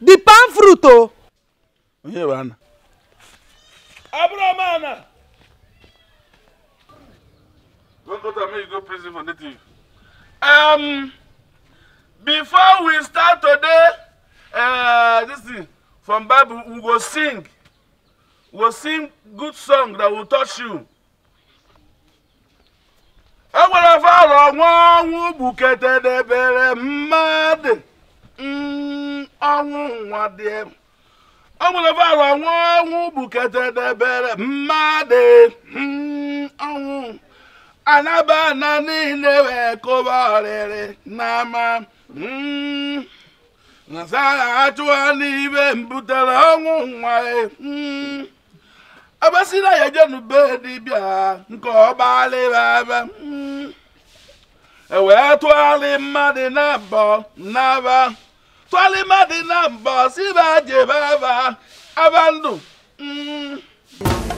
the palm fruit o. Oh. onye bụ Don't go to me, go prison for native. Um, before we start today, uh, this thing from Bible, we go sing. We go sing good song that will touch you. Enwere fọrọ nwa ọnwụ gbuketedebere mmadụ ọnwụ nwa dị Enwere fọrọ nwa ọnwụ gbuketedebere mmadụ ọnwụ anabana niile wee kụba ọrịrị n'ama hmm. nzaghachiwa n'ibe mbutere ọnwụ nwa abasila ya jenube dibịa nke ọgbalịbaba hmm. ewee tụgharị mmadụ na mbọ n'aba tụgharị mmadụ na mbọ si ba jebe aba aba ndụ hmm.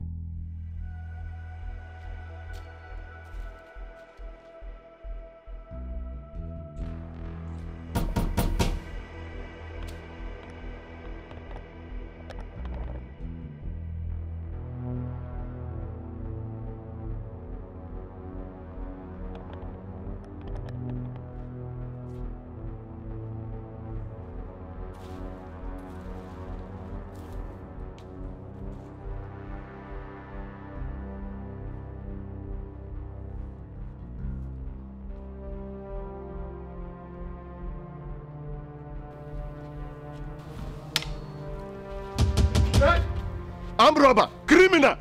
robber, criminal.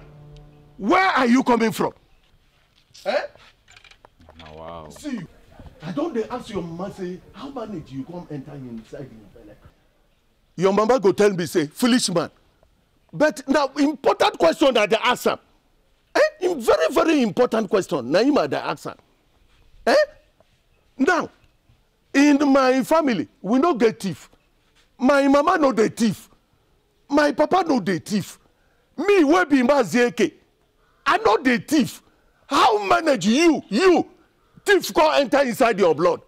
Where are you coming from? Eh? Oh, wow. See, I don't they ask your mama, say, how many do you come enter inside your belly? Your mama go tell me, say, foolish man. But now, important question that they ask her. Eh? Very, very important question. Naima, they ask her. Eh? Now, in my family, we no get thief. My mama no the thief. My papa no the thief. me wey be mazieke i no dey thief how manage you you thief come enter inside your blood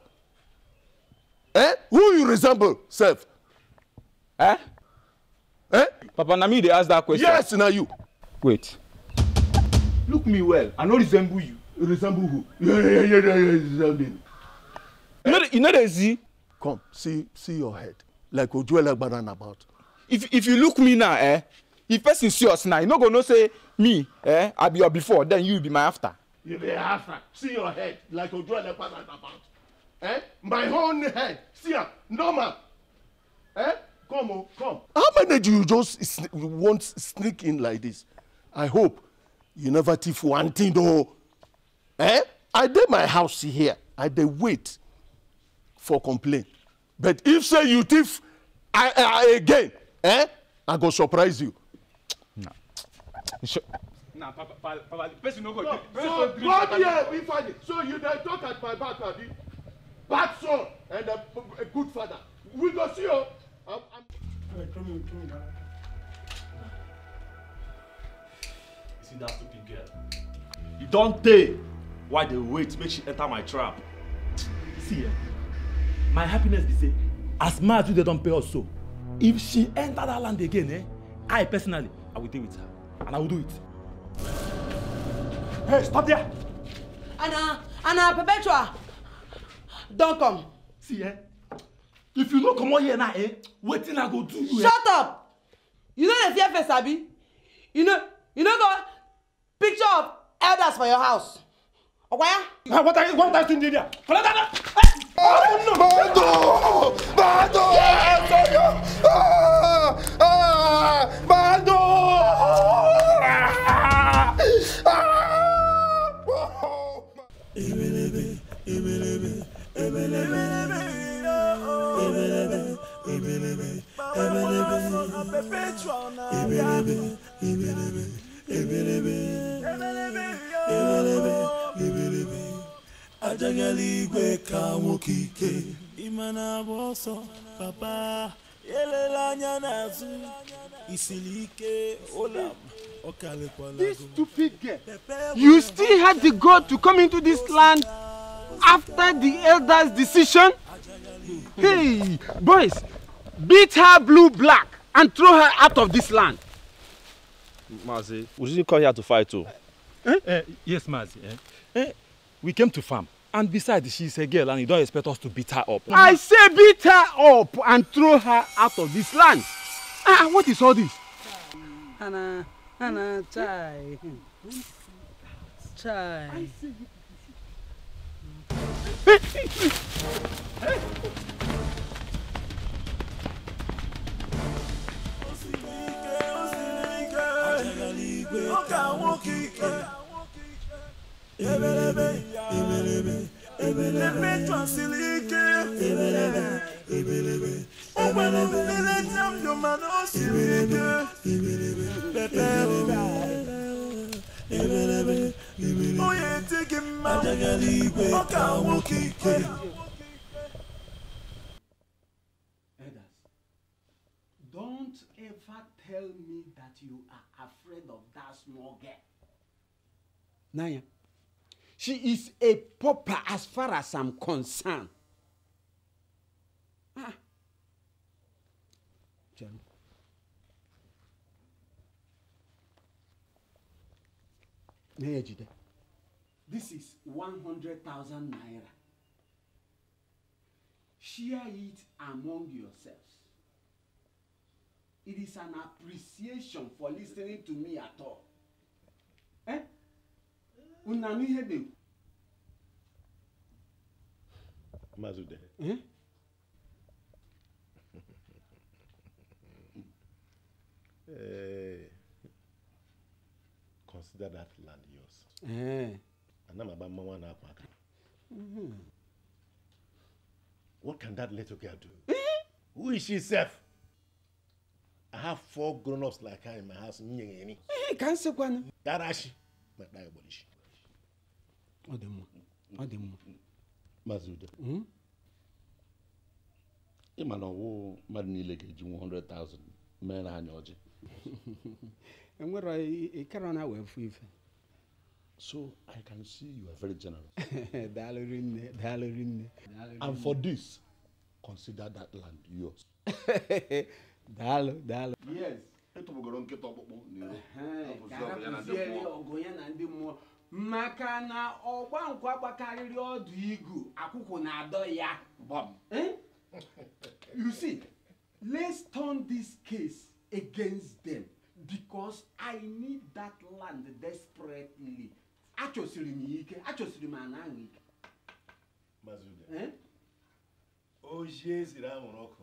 eh who you resemble sef. Eh? Eh? papa na me dey ask dat question. yes na you. wait. look me well i no resemble you. you resemble who. Resemble. you no dey see. come see see your head like ojuelagbara na about. if if you look me now eh if person see us now you no go know say me eh i be your before then you be my after. you be after see your head like ojo elepa na about eh my own head see No normal eh come on, oh, come. how many do you just sn want sneak in like this i hope you never thief one thing though. eh i dey my house here i dey wait for complaint but if say you thief i i again eh i go surprise you na papa papa the person no go drink so come here be father so you don't talk at my back abi bad son and a, a good father we go see o. I'm, I'm... Hey, come in, come in, you see that stupid girl e don tey why they wait make she enter my trap. see eh my happiness is say as much as they don't pay us so if she enter that land again eh i personally i will deal with her and I will do it. Hey, stop there! Anna, Anna, Perpetua! Don't come. See, eh? If you don't come out here now, eh? Wait till I go do you. Eh? Shut up! You know the fear Abby. You know, you know got picture of elders for your house. Okwaya? Okay? Ah, what are you, what are you doing there? Collect that! Eh! Oh no! Bado! Bado! Yes! Oh, eh, ah! Ah! adagala igwe ka nwoke ike ịmana agba ọsọ papa elela anya n'azụ isiri ike ụlọ This stupid girl, you still had the gold to come into this land after the elders' decision? Hey, boys, beat her blue black and throw her out of this land. Mazi, we didn't come here to fight too. Eh? Eh, yes, Mazi. Eh? Eh? We came to farm. And besides, she's a girl and you don't expect us to beat her up. I say beat her up and throw her out of this land. Ah, what is all this? Hannah, Hannah, chai. Chai. Hey! Eh, eh, eh. Don't ever tell me that you afraid of that small girl. Naya. She is a pauper as far as I'm concerned. Ah. Jerry. Naya Jide. This is 100,000 naira. Share it among yourselves it is an appreciation for listening to me at all eh unu anụ ihe na-ekwu. Eh, consider that land yours. Eh. Ana m agba mmanwụ na-akwa aka. Mm-hmm. What can that little girl do? Eh? Who is she self? I have four grown-ups like her in my house. Nyengeni. Eh, ka eh, nsekwa na. Darashi. Ma da ebolishi. Ọ dị mma. Ọ dị mma. Maazị Udo. Hmm? Ị ma na ọwụ mmadụ niile ga-eji 100,000 mere anya ọjị. Enwere ịkara na wee fụ ife. So I can see you are very generous. Daalụ rinne, daalụ rinne. And for this, consider that land yours. daalụ daalụ maka na ọgba nkwụ agbakarịrị ọdụ igu akwụkwụ na-adọ ya e? you see let's turn this case against them because i need that land desperately achọsiri m ike achọsiri m ana ike e? oji eziri anwụrụ ọkụ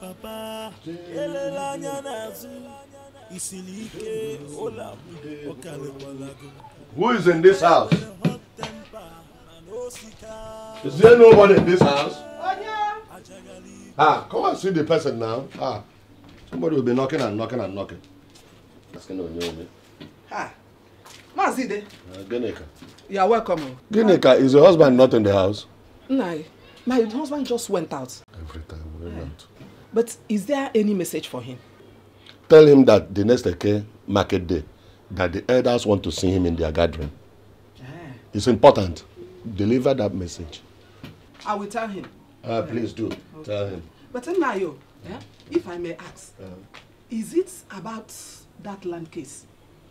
papa elelanya n'azụ isiri ike ụlọ ọkaliwalago. Who is in this house? Is there nobody in this house? Ah, come and see the person now. Ah, somebody will be knocking and knocking and knocking. Asking on your name. Ah, Mazide. Uh, Geneka. You are welcome. Geneka, is your husband not in the house? No, my husband just went out. Every time we went out. But is there any message for him? Tell him that the next Eke market day, that the elders want to see him in their gathering. Ah. It's important. Deliver that message. I will tell him. Uh, please do. Okay. Tell him. But Nayo, yeah? if I may ask, uh-huh. is it about that land case?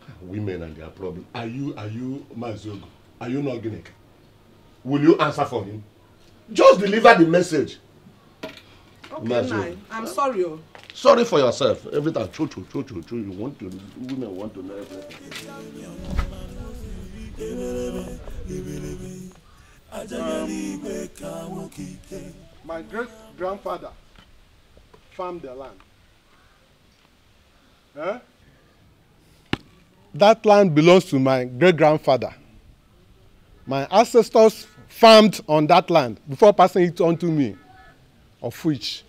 Ah, women and their problem. Are you, are you, Mazogo? Are you not Guinea? Will you answer for him? Just deliver the message. Okay, nine. I'm sorry. Oh. Sorry for yourself. Everything. True, true, true, true, true. You want to, women want to know everything. my great grandfather farmed the land. Huh? That land belongs to my great grandfather. My ancestors farmed on that land before passing it on to me of which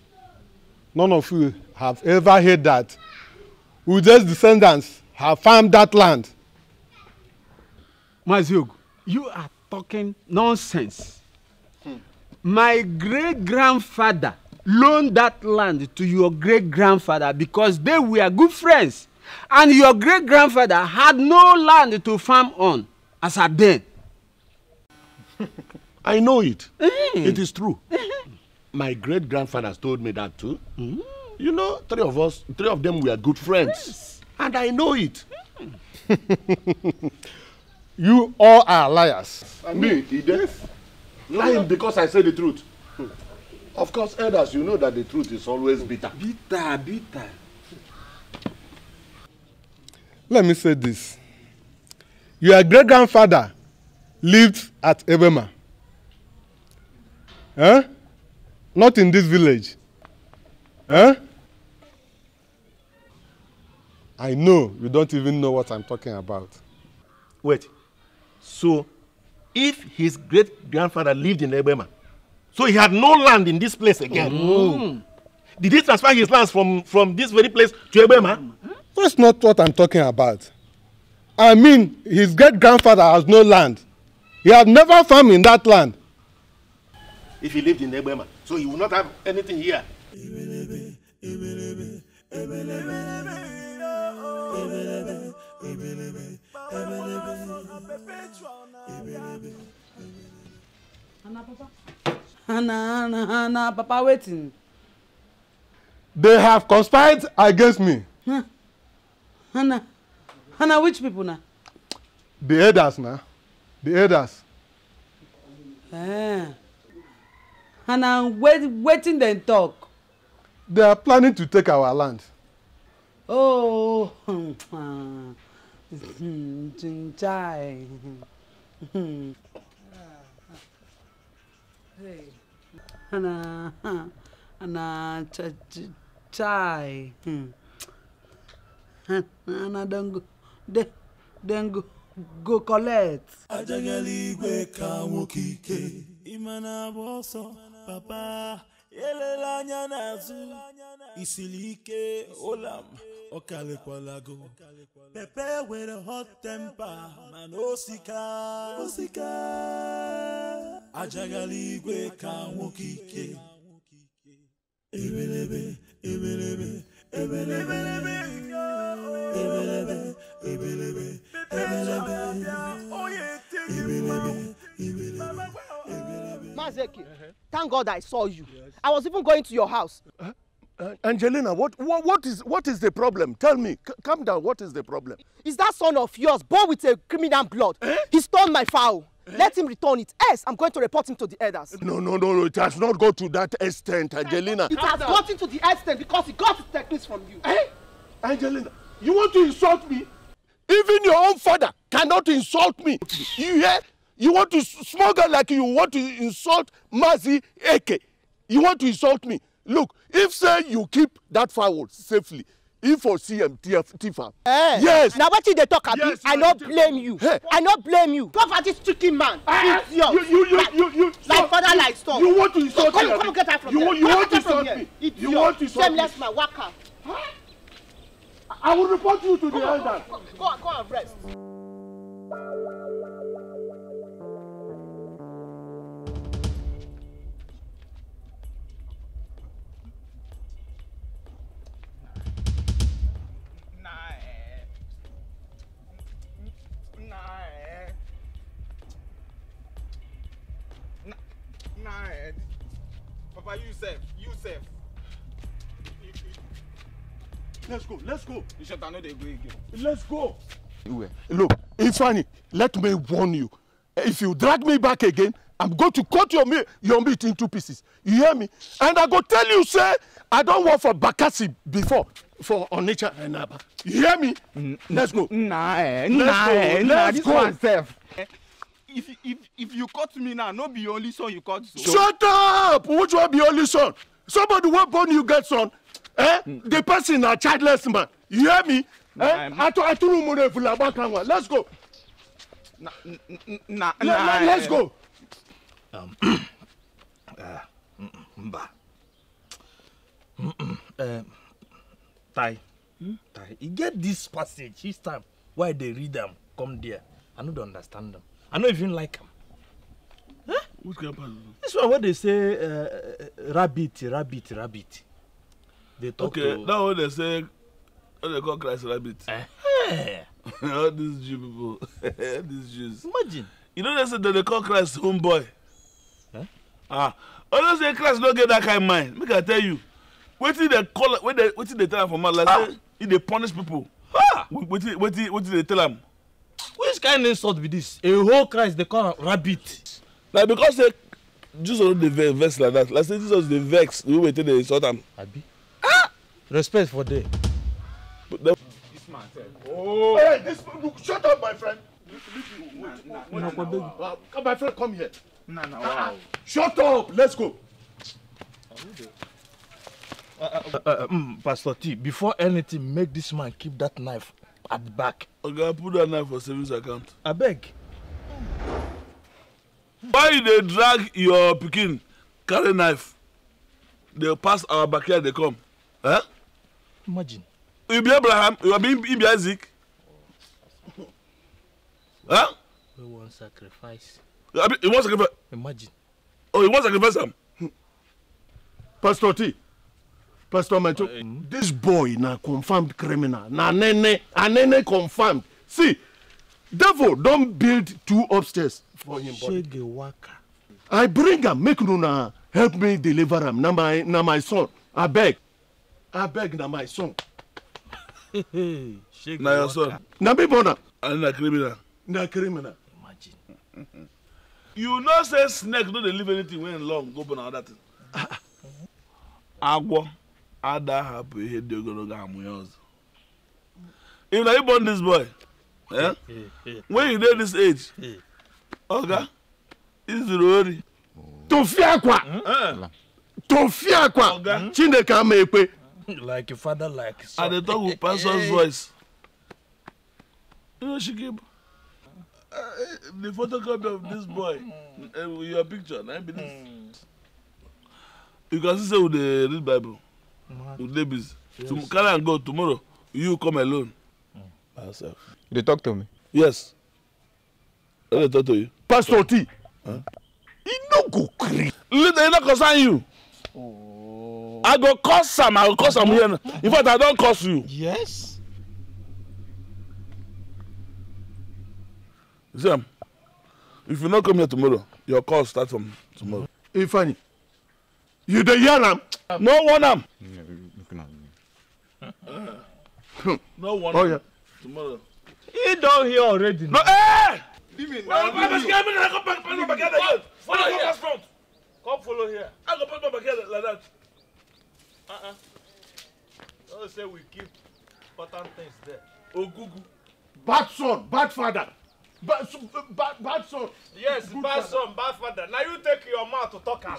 none of you have ever heard that Ude's descendants have farmed that land. Maziogu, you are talking nonsense. Hmm. My great grandfather loaned that land to your great grandfather because they were good friends and your great grandfather had no land to farm on as a then. I know it. Mm. It is true. Eh my great grandfathers told me that too. Mm. You know, three of us, three of them were good friends. Yes. And I know it. you all are liars. And me, Edith? Lying because I say the truth. Hmm. Of course, elders, you know that the truth is always bitter. Bitter, bitter. Let me say this. Your great-grandfather lived at Ebema. Huh? Not in this village. Huh? Eh? I know you don't even know what I'm talking about. Wait. So, if his great-grandfather lived in Ebema, so he had no land in this place again. Mm. Did he transfer his lands from, from this very place to Ebema? That's not what I'm talking about. I mean, his great-grandfather has no land. He had never farmed in that land. if he lived in Ebema, So he would not have anything here. Hana Papa. Hana, Hana, Hana, Papa waiting. They have conspired against me. Huh. Anna, Hana, which people now? The elders now. The elders. Ah and wait, wetin dem talk. they are planning to take our land. oh chinchai. ana ana chai ana dem go dem go go collect. ajagala igwe ka nwoke ike ịma na-agba ọsọ. papa elela anya isilike olam ike ụlam ọkarịkwalago pepe nwere hot temper, mana osika osika ajaghala igwe ka nwoke ike ebelebe ebelebe ebelebe ebelebe ebelebe ebelebe ebelebe ebelebe Ezeke, uh -huh. thank God I saw you. Yes. I was even going to your house. Huh? Uh, Angelina, what, what, what, is, what is the problem? Tell me. C calm down. What is the problem? Is that son of yours born with a criminal blood? Eh? He stole my fowl. Eh? Let him return it. Yes, I'm going to report him to the elders. No, no, no, no. It has not got to that extent, Angelina. It has down. gotten to the extent because he got his techniques from you. Hey, eh? Angelina, you want to insult me? Even your own father cannot insult me. You hear? You want to smuggle like you want to insult Mazi Eke. You want to insult me. Look, if say you keep that fowl safely, if for CM TFA. Hey, eh, yes. Now what you they talk about Yes, I no blame you. Hey. I no blame you. Go this stricken man. Uh, you, you, you, like, you, you, like so, father you, like son. You want to insult me? Come, come get her from you, here. You, you want to insult me? You want to insult me? Shameless man, waka. Huh? I will report you to the elder. Go, go, go and rest. Papa Youssef, Youssef. Let's go, let's go. You should know they go again. Let's go. Look, it's funny. Let me warn you. If you drag me back again, I'm going to cut your meat, your meat in pieces. You hear me? And I go tell you, sir. I don't work for Bakassi before for Onitsha and Aba. You hear me? Mm, Let's go. Nah, let's nah, go. Eh, let's nah, go. this go. one if if if you cut me now no be your only son you cut so. shut up which one be only son somebody wey born you get son eh mm. the person na childless man you hear me eh atu atunu mu refu laba kanwa let's go. na na na Le, eh. let's go. Um, uh, mm, mm, mba uh, mm, eh, tai hmm? tai e get this passage each time wey i dey read am come there i no dey understand am I don't even like him. Huh? Which grandpa? This one where they say uh, uh, uh, rabbit, rabbit, rabbit. They talk okay, to... now when they say, when they call Christ rabbit. Uh All these Jew people, these Jews. Imagine. You know they say that they call Christ homeboy. Huh? Ah, all they say Christ don't get that kind of mind. Make I tell you, wetin they call, wetin they, wetin they tell him for man, like ah. say, he dey punish people. Ah. Wetin, wetin, wetin they tell him? which kind insult be this a whole christ dey call am rabbit. na because say jesus no dey vex vex like that like say jesus dey vex the way we take dey insult am. abi ah respect for there. this man sef. oh hey this look shut up my friend. Nah, nah, nah, nah, my friend come here. Nah, nah, wow. shut up let's go. Uh, uh, uh, um, pastor t before anything make this man keep that knife at the back. to put that knife for savings account beg. why they drag your picking carry knife They pass our backyard They come eh imagine you be abraham you are being be isaac Huh? Eh? we wan sacrifice you wan sacrifice imagine oh you wan sacrifice am pastor t Pastor Macho, uh, this boy na confirmed criminal. Na nene, anene confirmed. See, devil don build two upstairs for him body. Shege waka. I bring am make una help me deliver am. Na my na my son. Abeg. Abeg na my son. na your son. Na me born am. And na criminal. Na criminal. Imagine. you know say snake no dey leave anything wey long go born another thing. Agwo ada hapụ ihe dị ogologo amụ ya ọzọ if na you born this boy eh? when you dey this age oga izuru ori tofi akwa hmm? tofi akwa hmm? chineke ama ekpe like your father like son. i dey talk with pastor's voice you know she give uh, the photocopy of this boy uh, your picture na be this you can see say we dey read bible with babies. Yes. To carry and go tomorrow. You come alone. By yourself. You dey talk to me? Yes. I dey talk to you. Pastor T. Huh? You no go gree. Later, e no concern you. Oh. I go curse am. I go curse am here. In fact, I don curse you. Yes. You see am? If you no come here tomorrow, your call start from tomorrow. Ifeanyi. Mm -hmm you dey yarn am no warn am. no warn oh, yeah. tomorrow. he don hear already. no eh. leave me now. wait wait wait come pack my bag again. follow here pass front. come follow here. i go pack my bag again like that. Uh-uh. don say we keep important things there. ogugu. bad son bad father bad bad son. yes Good bad father. son bad father na you take your mouth to talk am.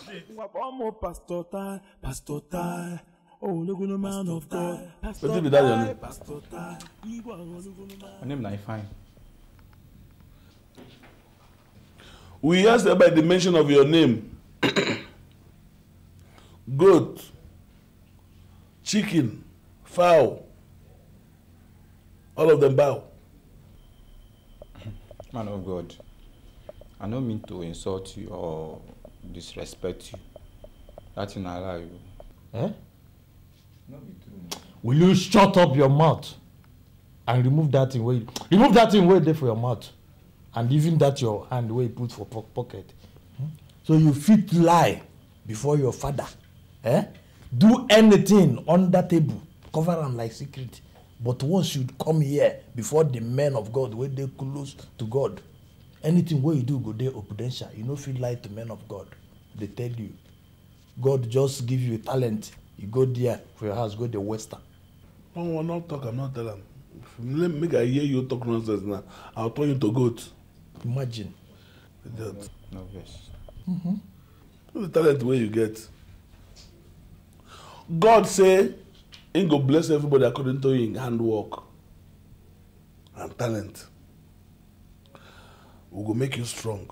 ọmọ pastor tai pastor tai oh, ológunlé man of god pastor tai wetin be that your name. man. my name na ifeanyi. we hear say by the mention of your name goat chicken fowl all of them bow. Man of God, I no mean to insult you or disrespect you. That in Allah you. Eh? Will you shut up your mouth and remove that thing wey remove that thing wey dey for your mouth and even that your hand wey you put for pocket. Hmm? So you fit lie before your father. Eh? Do anything under table. Cover am like secret. But once you come here before the men of God wey dey close to God. Anything wey you do go dey opudential. You no fit lie to men of God. Dey tell you. God just give you a talent. You go there for your house go dey waste am. One one not talk, I'm not tell am. Make I hear you talk nonsense now. I'll turn you to goat. Imagine. Idiot. No, yes. Mm-hmm. The talent wey you get. God say He go bless everybody according to his handwork and talent. We go make you strong.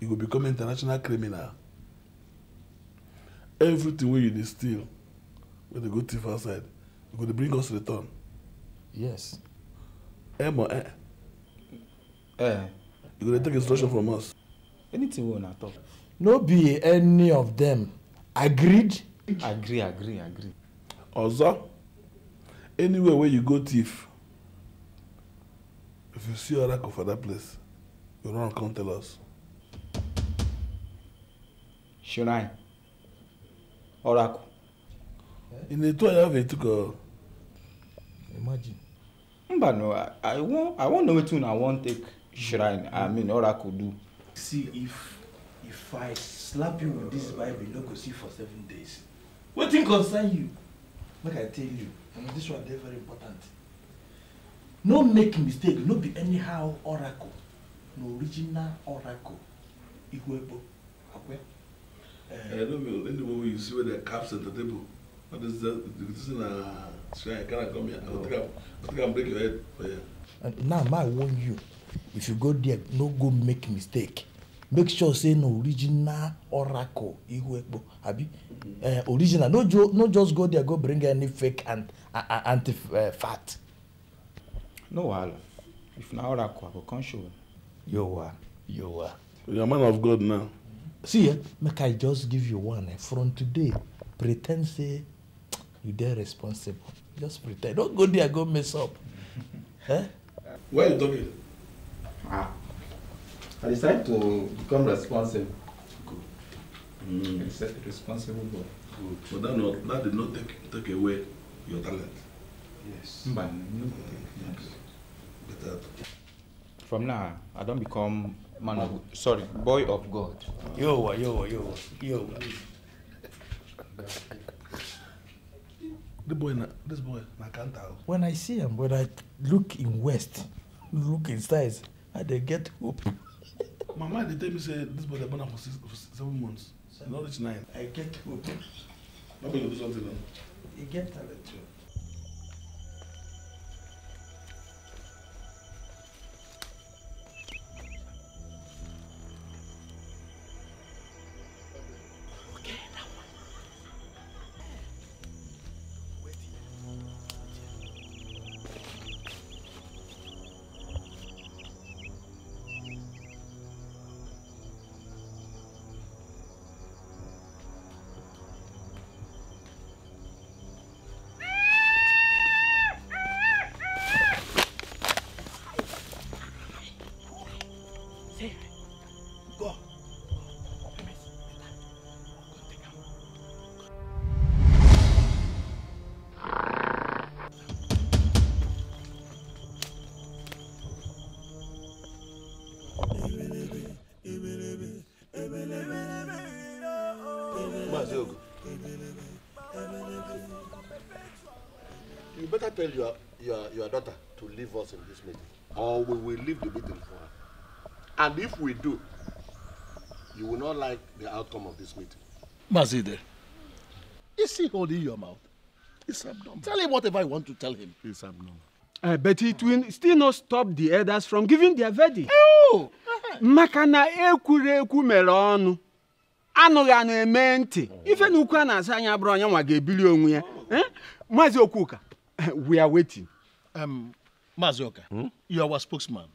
You go become international criminal. Everything wey you dey steal, wey dey go thief outside, you go dey bring us return. Yes. Eh, mo eh. Eh. You go dey take instruction from us. Anything we una talk. No be any of them agreed agree agree agree. ọzọ anywhere wey you go thief if you see oracle for that place you run come tell us. shrine oracle. in the two and a half years imagine. mba no i, I wan i wan know wetin una wan take shrine i mean oracle do. see if if i slap you with this bible you no go see for seven days wetin concern you make i tell you and this one dey very important no make mistake no be anyhow oracle No original oracle igwebo akwe. Uh, no be any one wey you see wey dey caps at the table what is that? this uh, this na shrine carry am come here i go oh. take am go take am break your head for here. and now ma warn you if you go there no go make mistake make sure say na original oracle ihuekpo abi uh, original no, jo, no just go there go bring any fake and uh, anti uh, eh, fat. no wahala if na oracle i go come show you. yowa yowa. you are man of god now. see eh make i just give you one eh, from today pre ten d say you dey responsible just pre ten d don't go there go mess up. eh? well done. ah I decided to become responsible. Good. Mm. Responsible boy. Good. But that, not, that did not take, take away your talent. Yes. But, mm-hmm. no. Mm-hmm. yes. From now, I don't become man of sorry, boy of God. Yo, yo, yo, yo. The boy, this boy, I can't tell. When I see him, when I look in west, look in size, I get hope. my mind dey tell me say this boy dey born am for six for seven months e don reach nine. i get hope. no you do something o. e get talent o. tell your, your, your daughter to leave us in this meeting, or we will leave the meeting for her. And if we do, you will not like the outcome of this meeting. Mazide, is he holding your mouth? It's abnormal. Tell him whatever I want to tell him. It's abnormal. Uh, but it will still not stop the elders from giving their verdict. Oh! maka na ekwurekwu mere ọnụ anụghị anụ eme ntị oh. ife na ukwu a na-asa anya bụrụ onye nwa ga-ebili onwe ya eh? maazị okwuka we are waiting. Um, Mazioka, hmm? you are our spokesman.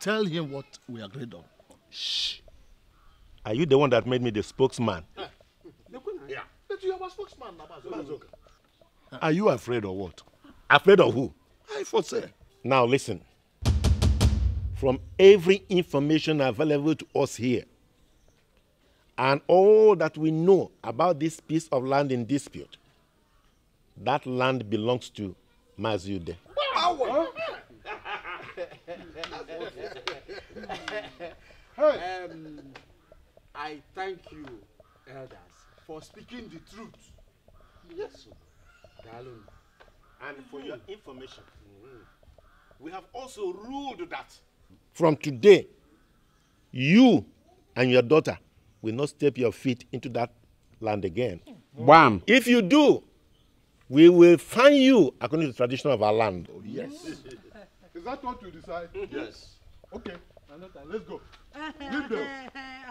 Tell him what we agreed on. Shh. Are you the one that made me the spokesman? Ah. Yeah. But you are our spokesman, Mazioka. Ah. Are you afraid of what? Afraid of who? I foresee. Now listen. From every information available to us here, and all that we know about this piece of land in dispute, that land belongs to Mazude. um, I thank you, elders, for speaking the truth. Yes, sir. And for your mm-hmm. information, we have also ruled that from today, you and your daughter will not step your feet into that land again. Bam. If you do, we will find you according to the tradition of our land. Oh, yes. Is that what you decide? Yes. Okay. Let's go. Leave them.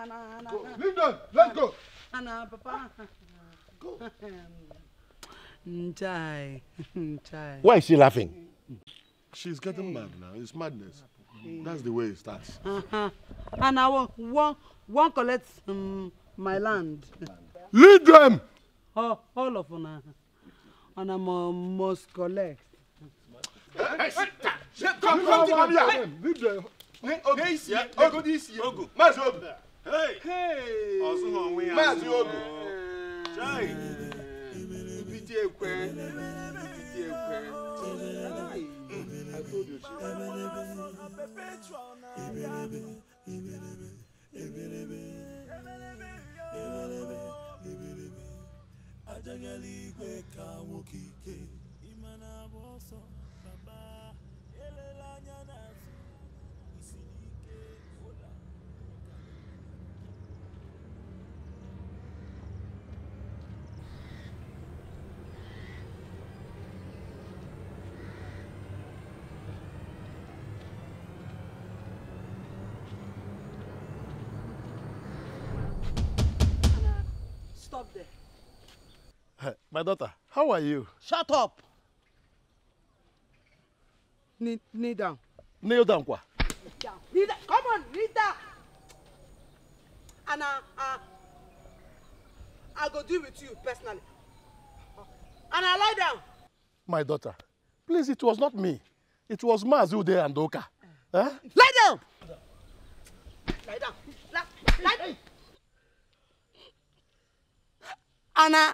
Go. Leave them. Let's go. Anna, Papa. Go. Why is she laughing? She's getting mad now. It's madness. That's the way it starts. And I won't, won't, collect um, my land. Lead them! Oh, all of them. and I must collect. Come, come, come here. Leave the. N'isi ya, ogo n'isi ya. Ogo. Maazị Ogu. Ọzụghị onwe ya. Maazị Ogu. Chai. Ibite ekwe. Ibite ekwe. I told Ebelebe. Ebelebe. Ebelebe. Ebelebe. ajagala igwe ka wokike ike ime My daughter, how are you? Shut up. Knee, knee down. Kneel down, Kwa. Down. Knee down. Come on, knee down. And uh, I, I'll go deal with you personally. And I lie down. My daughter, please, it was not me. It was Mazu there and Oka. Huh? Eh? Lie down! Lie down. Lie, lie down. Anna,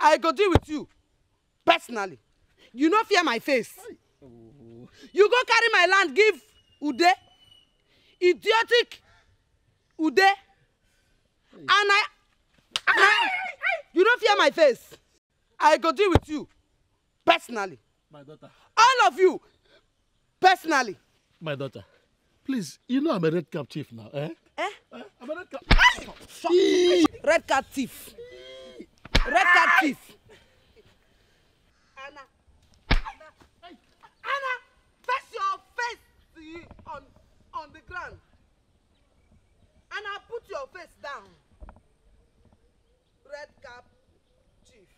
i go deal with you personally you no fear my face you go carry my land give ude idiotic ude and i and i you no fear my face i go deal with you personally my daughter all of you personally my daughter please you know i'm a red cap chief now eh eh, eh? i'm a red cap red cap thief red card thief. Anna, Anna, Anna, face your face on on the ground. Anna, put your face down. Red cap chief.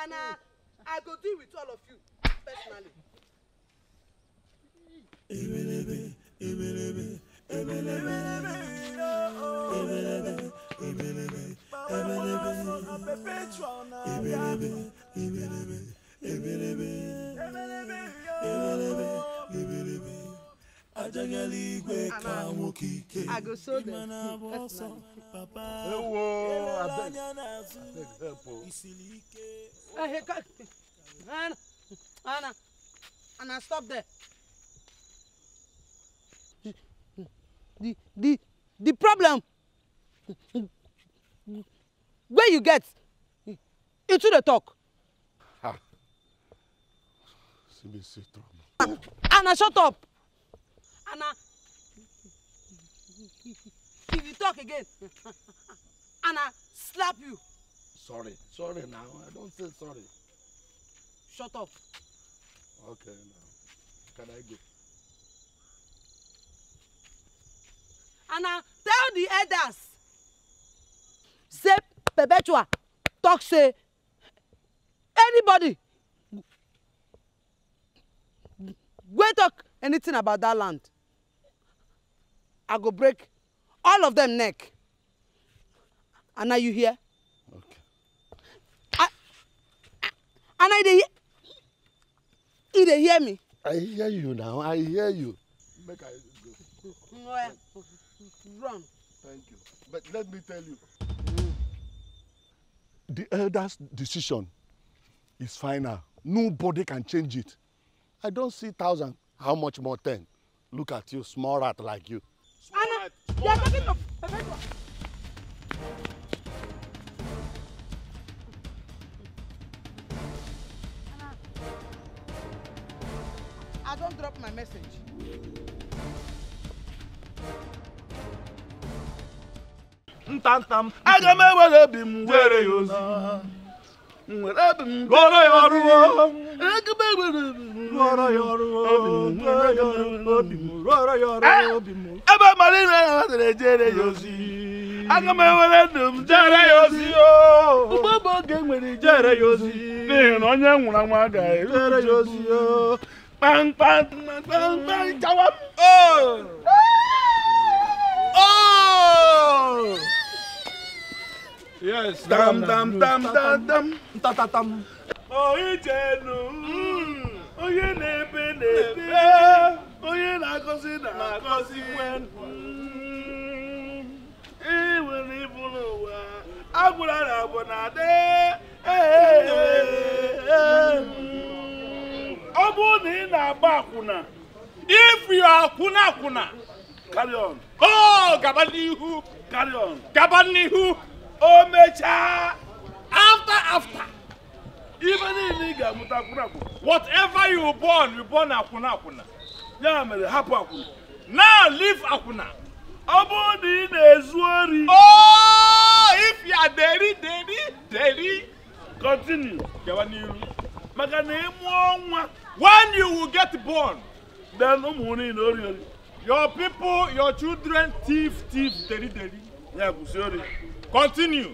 Anna, mm. I go deal with all of you personally. Ebelebe, ebelebe, ebelebe, ebelebe, ebelebe. Oh, oh ebelebe ebelebe ebelebe ebelebe ebelebe ebelebe ajagala igwe ka nwoke ike ịmana abụ ọsọ papa anya n'azụ isiri ike. Anna, Anna, stop there. The, the, the problem where you get into the talk. CBC trauma. Anna, shut up. Anna, if you talk again, Anna, slap you. Sorry, sorry now. I don't say sorry. Shut up. Okay, now. Can I go? Anna, tell the elders say perpetua talk say anybody wey talk anything about that land i go break all of them neck and are you here? okay. I, I, and i dey you dey hear me. i hear you now i hear you make i go. well run. thank you but let me tell you the elders decision is final nobody can change it i don see thousand how much more ten look at you small rat like you. small Anna, rat small you are talking to I don't drop my message. ntanta m aga m ewere obi m were ya ozi nwere obi m rụọrọ ya ọrụ aga m ewere obi m rụọrọ ya ọrụ obi m rụọrọ ya ọrụ obi m ebe mara ire ya natara ejere ya ozi aga m ewere ndụ m jere ya ozi ugbo bụ oge nwere jere ya ozi n'ihi na onye nwụrụ anwụ agaghị jere ya ozi kpamkpam kpamkpam jawa m Oh! Yes. Dam dam dam dam dam. na-ebe na-ebe. Onye na-agọzi na Ị nwere n'ụwa. na na mm. Ọ na ị na-agba akwụna, if you are akwụna akwụna, carry Oh, gaba omecha after after even niile ị ga-amụta akwụna akwụna whatever you born you born akwụna akwụna ya mere hapụ akwụna now leave akwụna ọ bụrụ na ị na-ezu ori oh if you are deri deri deri continue gawa n'iru maka na ịmụọ nwa when you will get born then ụmụ niile ori ori your people your children thief thief deri deri ya gusiori continue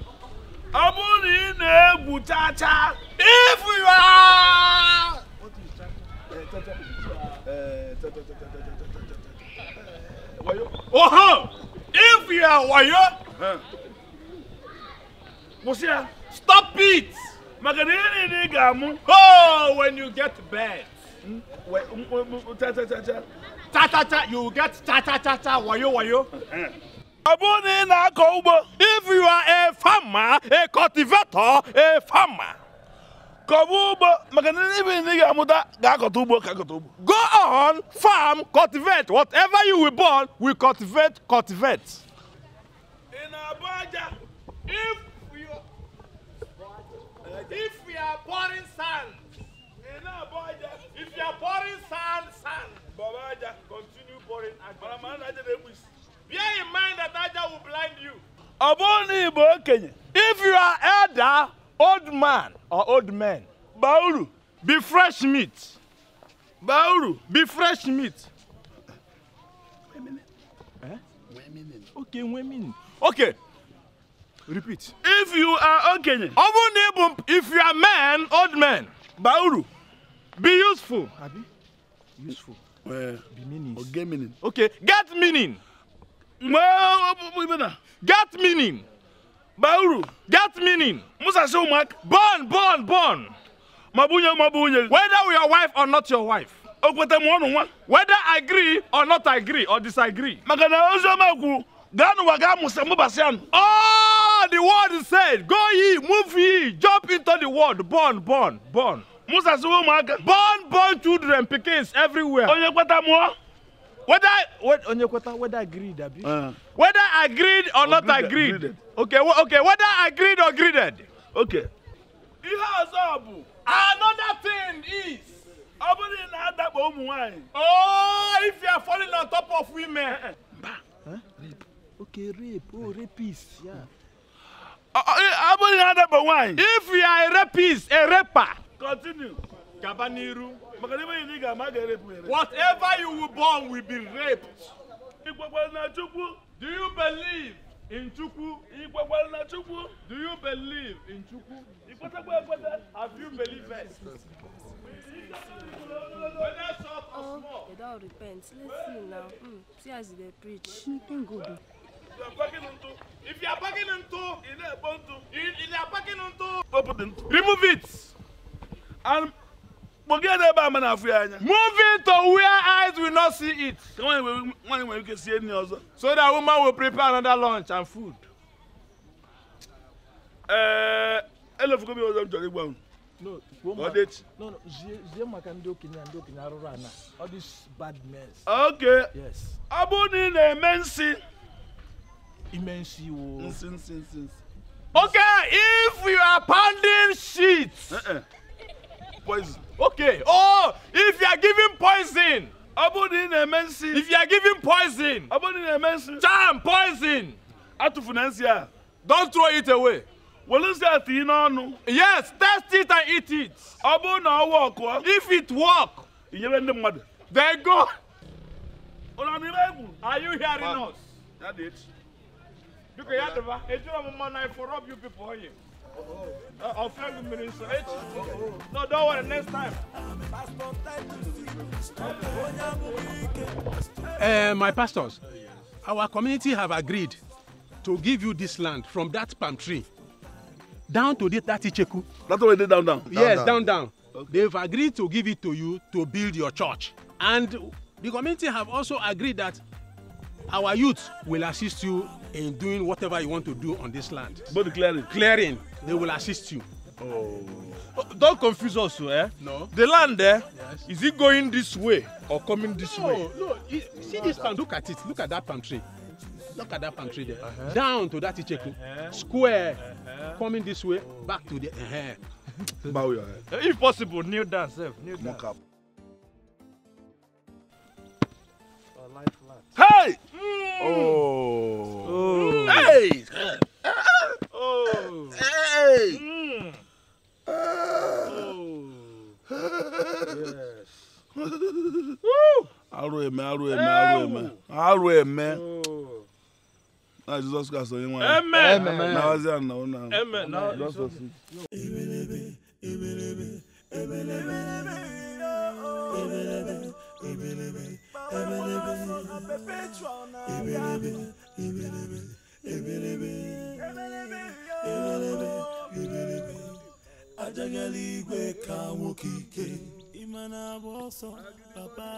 ọ bụrụ na ị na-egwu chacha if you are oho if you are wayo kwụsị ya stop it maka na ihe niile ị ga-amụ oh when you get bed hmm? cha cha cha cha cha cha cha. you get cha cha cha cha wayo wayo eh ọ ị na-akọ ugbo if you are a farmer a cultivator a farmer kọba ugbo maka na ebe ị ga-amụta ga-akọta ugbo ka akọta ugbo go on farm cultivate whatever you were born we cultivate cultivate ị na-abụ aja if you if you are pouring sand ị na-abụ aja if you are pouring sand sand baba aja continue pouring aja mana ma aja na-egbu isi Bear in mind that Niger will blind you. okenye, if you are elder, old man or old man, Bauru, be fresh meat. Bauru, be fresh meat. Eh? Okay, women. Okay. Repeat. If you are okenye, Ọbụna Igbo, if you are man, old man, Bauru, be useful. Useful. Uh, be meaning. Okay, get meaning. Get meaning. Bauru. Get meaning. Musa Shumak. Born, born, born. Mabunye, mabunye. Whether your wife or not your wife. Okwete mwonu wa. Whether I agree or not I agree or disagree. Makana ozo maku. Ganu waga musa mubasian. Oh, the word said. Go ye, move ye, jump into the world. Born, born, born. Musa Shumak. Born, born children, pickings everywhere. Onye kweta mwonu whether what onyekweta whether agreed abi uh, whether agreed or, or not greeded, agreed greeded. okay okay whether agreed or greeded okay ihe ọzọ bụ another thing is ọ bụrụ na adakpo ụmụ nwanyị oh if you are falling on top of women eh, eh. Ba. okay rape oh rapist yeah ọ bụrụ na adakpo nwanyị if you are a rapist a raper continue whatever you were born will be raped do you believe in chukwu do you believe in chukwu have you believed Oh, they don't repent. Let's see now. Mm, see as they preach. Nothing good. You are backing into. If you are backing into, you are packing into. Open. Remove it. And Bogeda ba mana afu anya. Moving to where eyes will not see it. Come on, one when you can see any other. So that woman will prepare another lunch and food. Eh, elo fuko bi ozo jori gba un. No, Odet. No, no, zie maka ndị okenye ndị okenye arụrụ ana. All this bad men. Okay. Yes. Abu ni na eme nsi. Ime nsi wo. Nsi nsi nsi. Okay, if you are pounding shit. Uh eh, -uh. Eh poison. Okay. Oh, if you are giving poison. Abodi na-eme nsi. If you are giving poison. Abodi na-eme nsi. Charm poison. Atụfu na nsi Don't throw it away. Were nsi a tinye n'ọnụ. Yes, test it and eat it. Ọ bụrụ na ọ wọkụọ. If it work. Inyere ndị mmadụ. Then go. Ụlọ n'ime Are you hearing us? Ya dị echi. Biko ya dịba, ejiri ọmụma na for rob you people onye. Uh, I'll the minister. No, don't worry, next time. Uh, my pastors, our community have agreed to give you this land from that palm tree down to the, that Icheku. That's already down, down. down yes, down, down. down. Okay. They've agreed to give it to you to build your church. And the community have also agreed that our youth will assist you in doing whatever you want to do on this land. But clearing. Clearing. they will assist you. Oh. oh. Don't confuse us, eh? No. The land there, eh? yes. is it going this way or coming this no, way? No, no. See this palm, look at it. Look at that palm tree. Look at that palm tree there. Uh -huh. Down to that Icheku. Uh -huh. Square. Uh -huh. Coming this way, back to the. Uh -huh. Bow your head. Eh, If possible, kneel down, sir. Eh, kneel down. Mock up. Hey! Oh. Mm. Oh. oh. Hey! Ah! Oh. Hey. Mm. Uh. Oh. yes. Woo. Aro eme, aro eme, aro eme. Aro eme. Na Jesus Christ onye nwaanyị. Amen. Na wazi ya nnawo na. Amen. Na wazi ya. Ebelebe, ebelebe, ebelebe, ebelebe, ebelebe, ebelebe, ebelebe, ebelebe ebelebe ebelebe ebelebe ajagala igwe ka nwoke ike ịma na-agba ọsọ papa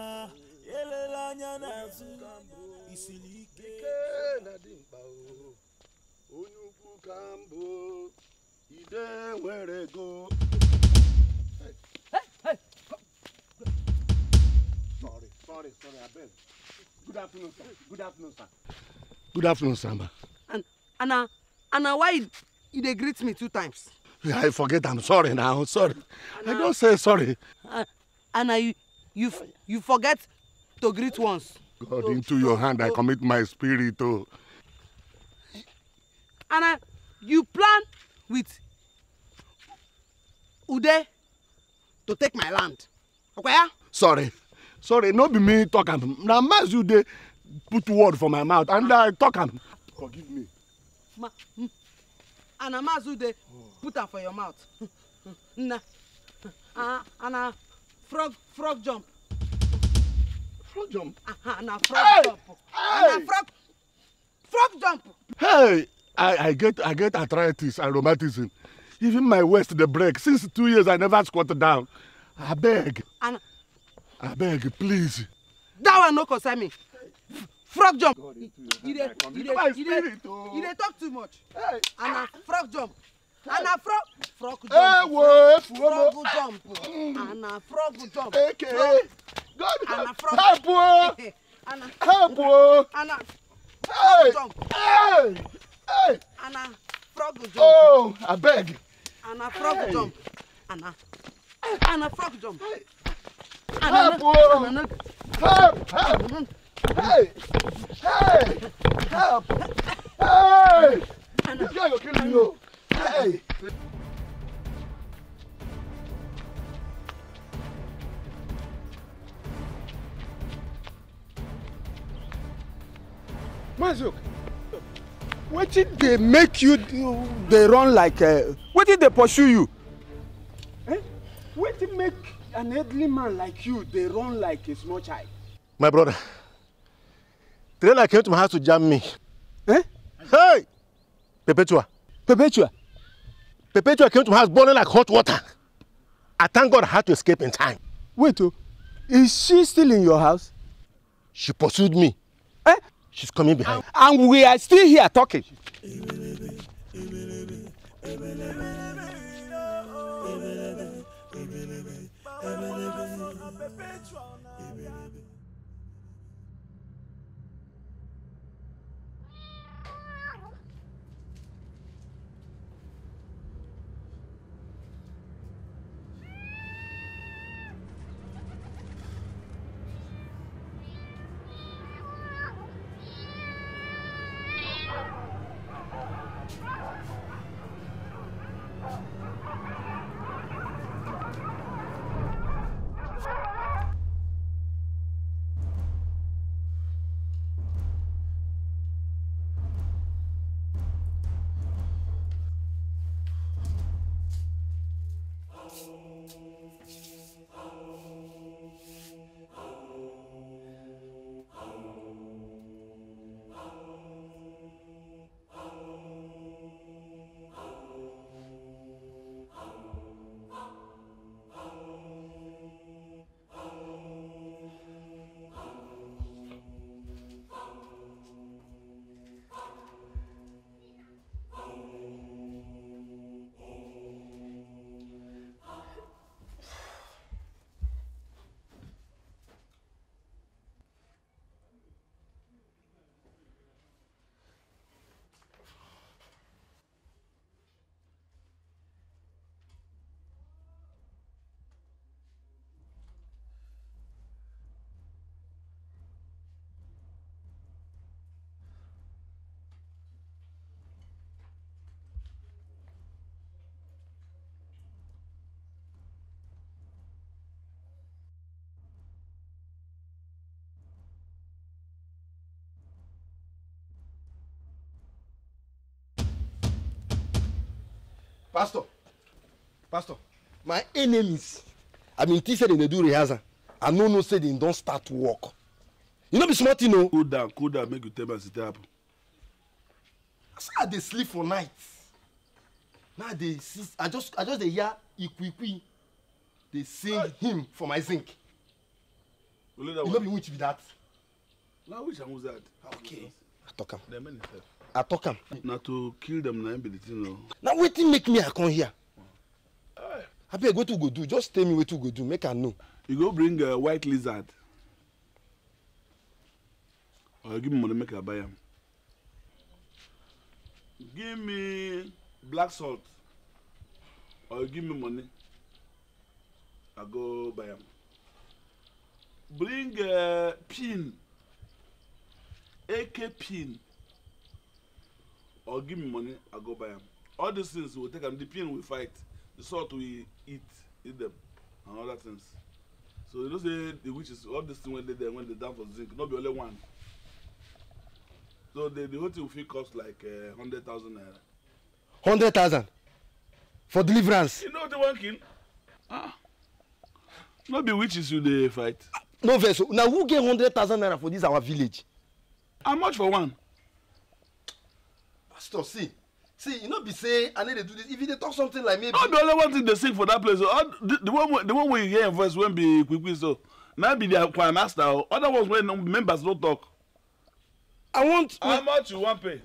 elela anya n'azụ isiri ike na-adị mkpa onye ukwu ka mbụ ide nwere ego sorry sorry sorry abeg good afternoon sir good afternoon sir good afternoon sir Anna, Anna, why you dey greet me two times. i forget I'm sorry na sorry Anna, i don't say sorry. Uh, and you you you forget to greet once. god so, into your hand so, i commit my spirit o. Oh. and you plan with ude to take my land okwaya. Ah? sorry sorry no be me talking. Now na mass you dey put word for my mouth and i talk am forgive me ma hmm. ana maazị ude put am for your mouth nna ana frog frog jump frog jump ana frog hey! jump ana frog frog jump hey i i get i get arthritis and rheumatism even my waist dey break since two years i never squat down abeg abeg please. that one no concern me frog jump He dey He dey He dey talk too much and na frog jump and na frog frog jump ewo efuomo frog jump and na frog jump eke god and na frog help o help o and na frog jump Hey. and na frog jump oh abeg and na frog jump and na and na frog jump and help o help help. Hey! Hey! Help! Hey! This guy will kill you. Hey! Mazuk, wetin dey make you dey run like uh, wetin dey pursue you? Eh? Wetin make an elderly man like you dey run like a small child? My brother. Trailer came to my house to jam me. Eh? Hey! Perpetua. Perpetua? Perpetua came to my house boiling like hot water. I thank God I had to escape in time. Wait, oh, is she still in your house? She pursued me. Eh? She's coming behind. And we are still here talking. pastor pastor my enemies i bin mean, think say dem dey do rehearsal i no know say dem don start work you no be small thing o. cool down cool down make you tell me as e take happen. na i dey sleep for night na i dey see i just i just dey hear ikwiikwi dey sing uh, hymn for my zinc you no be witch be that. na witch and wizard. okay i talk am i talk am. na to kill dem na im be the thing o. na wetin make me i come here abeg wetin we go do just tell me wetin we go do make i know. you go bring uh, white lizard or you give me money make i buy am give me black salt or you give me money i go buy am bring uh, pin ak pin or give me money, I go buy them. All these things we take them, the pain we fight, the salt we eat, eat them, and other things. So you know say the witches, all these things when they there, when they down for zinc, not be only one. So the, the whole thing will cost like uh, eh, 100,000 naira. 100,000? For deliverance? You know what they want Ah. Not be witches you they fight. No vessel. Oh. Now who get 100,000 naira for this our village? How much for one? pastor see see you no be say i no dey do this if you dey talk something like maybe. no the only one thing dey sing for that place o the, the one the one wey you hear im voice wey be quick quick so na be their choir master o oh. other ones wey members no talk. i want. how much you wan pay.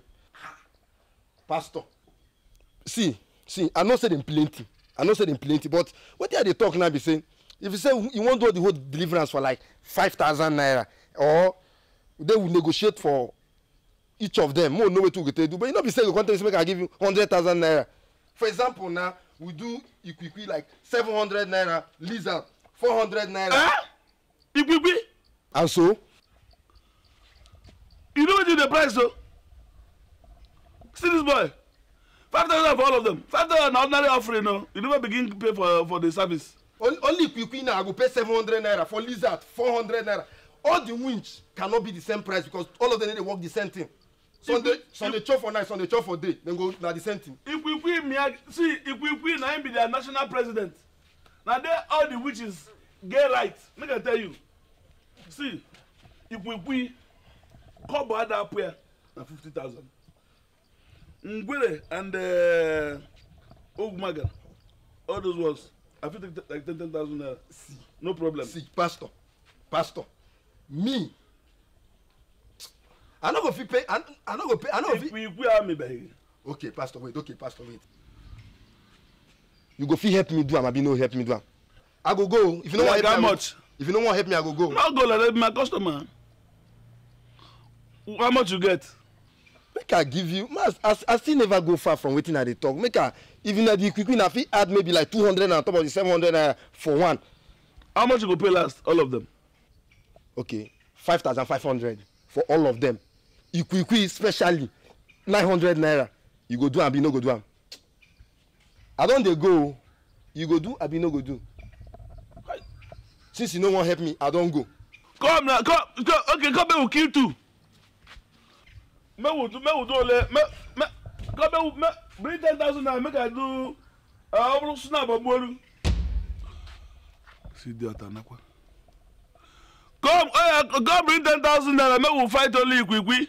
pastor see see i know say dem plenty i know say dem plenty but wetin i dey talk now be say if you say you wan do the whole deliverance for like five thousand naira or they will negotiate for each of them more know wetin we go take do but you know be say you go come tell me say make i give you hundred thousand naira for example na we do ikwikwi like seven hundred naira lizard four hundred naira. Ah! ikwikwi. and so. you know wetin dey price o see this boy five thousand for all of them five thousand na ordinary offering o you never begin pay for for the service. only, only ikwikwi na i go pay seven hundred naira for lizard four hundred naira all the winch cannot be the same price because all of them dey work the same thing sunday sunday chop for night sunday chop for day dem go na the same thing. ikwikwi mia see ikwikwi na him be their national president na there all the witches get right make i tell you see ikwikwi kobo ada up here na fifty thousand ngwere and uh, all those ones i fit take like ten ten thousand naira no problem. see pastor pastor me i no go fit pay i no go pay i no go fit. if you gree am abeg. okay pastor wait okay pastor wait you go fit help me do am abi no help me do am i go go if you no wan help me if you no wan help me i go go. no go like that be my customer how much you get. make i give you mas i still never go far from wetin i dey talk make i if na the quick quick na fit add maybe like two hundred on top of the seven hundred naira uh, for one. how much you go pay last all of them. okay five thousand five hundred for all of them. Ikuikui, especially nine hundred naira you go do am abi no go do am i don dey go o you go do abi no go do since you no wan help me i don go. come na come come okay come make we kill two make we do make we do ole make make come make we bring ten thousand naira make i do ọ bụrụ snap ọgbọrụ. si di ata nakwa. come oya eh, come bring ten thousand naira make we fight only ikwikwi.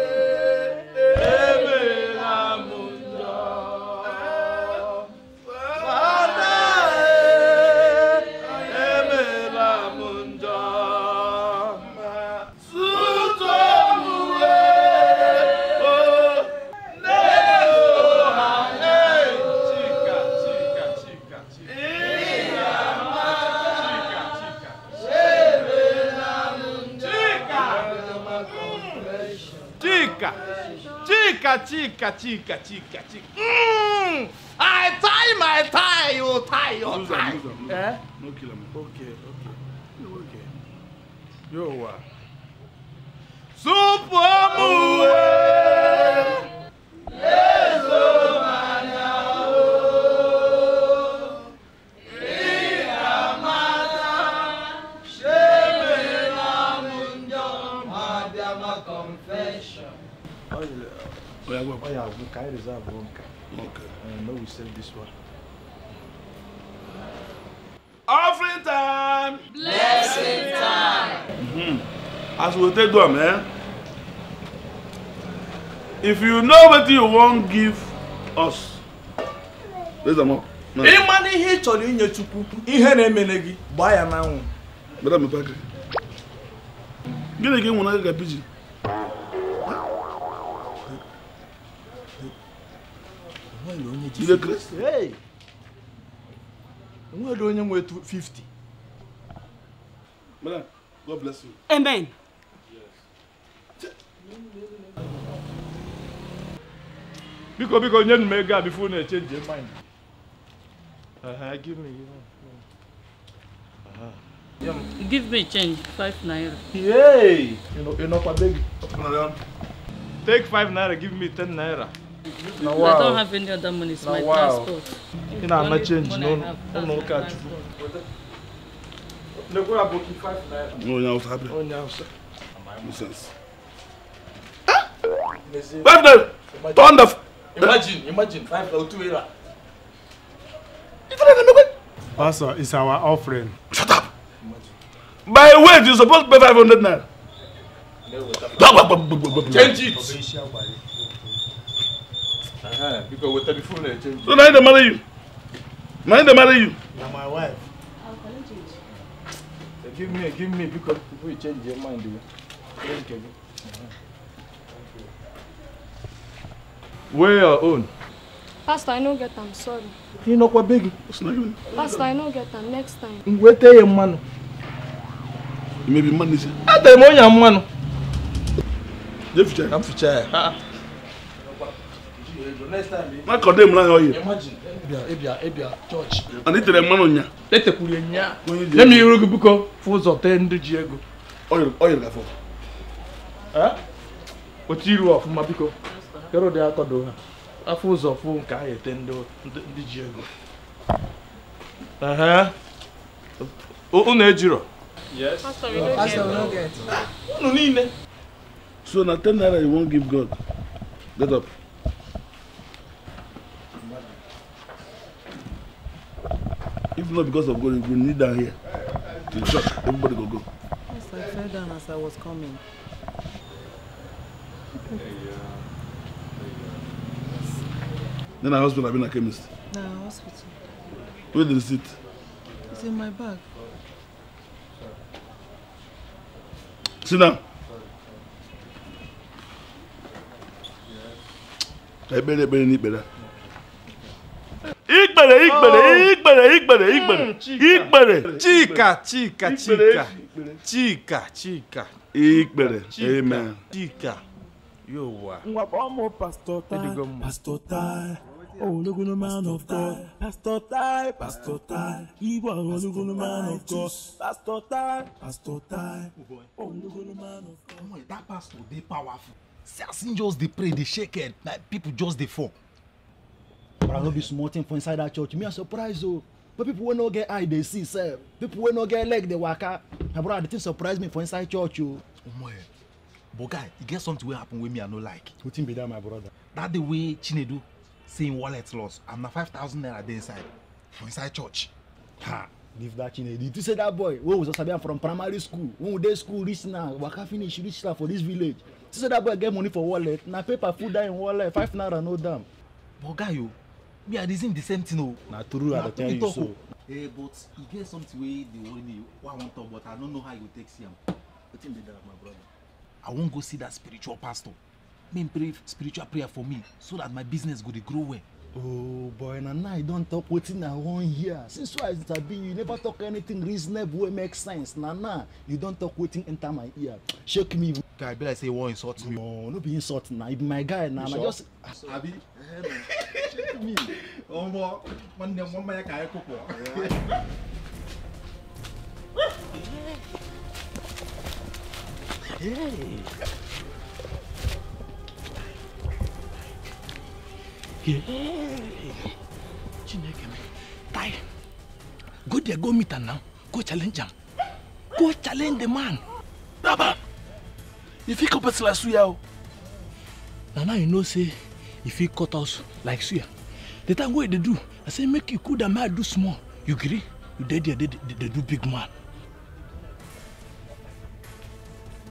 chica, chica, chica, chica, chica. Mm! I tie my tie, you tie your lose tie. Lose him, lose him. Eh? No kill him. Okay, okay. Okay. Yo, what? Super oh, our book. I reserve one car. Okay. And now we sell this one. Offering time! Blessing time! Mm-hmm. As we take them, eh? If you know what you won't give us, there's a more. ịmana ihe ị chọrọ inye chukwu ihe na-emele gị gbaa ya n'anwụ gịnị ka ị nwere aka ka pijin Ile Grace? Hey! to onye nwe 50. Madam, God bless you. Amen. Yes. because you nye m ego before you change your mind. Uh, give me. Uh, yeah. Give me change, five naira. Yay! You know, you know, Take five naira, give me ten naira. na wow. I don't have any other money. It's na my wow. passport. You know, I'm change. No, no, no, catch. No, go about five naira. No, no, five naira. No, oh, no, sir. Nonsense. Five naira. Turn the. Imagine, imagine five or two naira. Pastor, it's our offering. Shut up. Imagine. By weight, you're supposed to pay 500 naira. Change it because with the phone change. So now they marry you. Now they marry you. You're my wife. I'll call you. change. So give me, give me because people will change their mind. Oh. Thank you. Where your own? Pastor, I no get am, sorry. You know what big? not Pastor, I no get am next time. Wait till your man. Maybe may man, is it? I tell you, man. Jeff, I'm future. Ah, ah. time makọdo m n'ahịa ọyị ana itere mmanụ nya etekwuru nya nye m iru biko fụ ụzọ tee ji ego otu iru ọfụma biko kere ụdị akọdo ha afọ ụzọ fụ nke ahụ ete ji ego unu ejiro unu niile so na ten naira you wan give god get up If not because of God, you need down here to church. Everybody go go. Yes, I fell down as I was coming. Then I hospital, I've been a chemist. No, hospital. Where the receipt? It's in my bag. Sit down. I better, better, need better. Igbere, igbere, igbere, igbere, igbere, igbere. Chica, chica, chica. Chica, chica. Igbere. Amen. Chica. Yo wa. Nwa mo pastor tai, pastor tai. Oh, ologun man of God, pastor tai, pastor tai. Iwa ologun man of God, pastor tai, pastor tai. Ologun man of God. That pastor dey powerful. See as him just dey pray, dey shake head, like people just dey fall but i no be small thing for inside that church me i surprise o oh. but people wey no get eye dey see sef people wey no get leg dey waka my brother the thing surprise me for inside church o. Oh. omo eh but guy e get something wey happen wey me i no like. wetin be that my brother. that day wey chinedu say im wallet loss and na five thousand naira dey inside for inside church. ha leave that chinedu you think say that boy wey we just sabi am from primary school when we dey school reach now waka finish reach now for this village see say that boy get money for wallet na paper full dat im wallet five naira no dam. but guy o oh, me i reason the same thing o. Oh. na true i dey tell you so. Hey, oh. eh, but e get something wey dey worry me wey i wan talk but i no know how you go take see am wetin be that my brother. i wan go see that spiritual pastor make him pray spiritual prayer for me so that my business go dey grow well oh boy na now you don talk wetin i wan hear since why i sabi you never talk anything reasonable wey make sense na now you don talk wetin enter my ear shake me. guy be like say you wan insult me. no no be insult na you be my guy na na just. abi shake me ọmọ nwanne m nwanne ya ka anyị Hey. chineke m tai go there go meet her now go challenge him. go challenge the man daba if he cut person like suya oh. now now you know say if he cut us like suya the time what they do i say make you cool down make i do small you agree? you dey there They do big man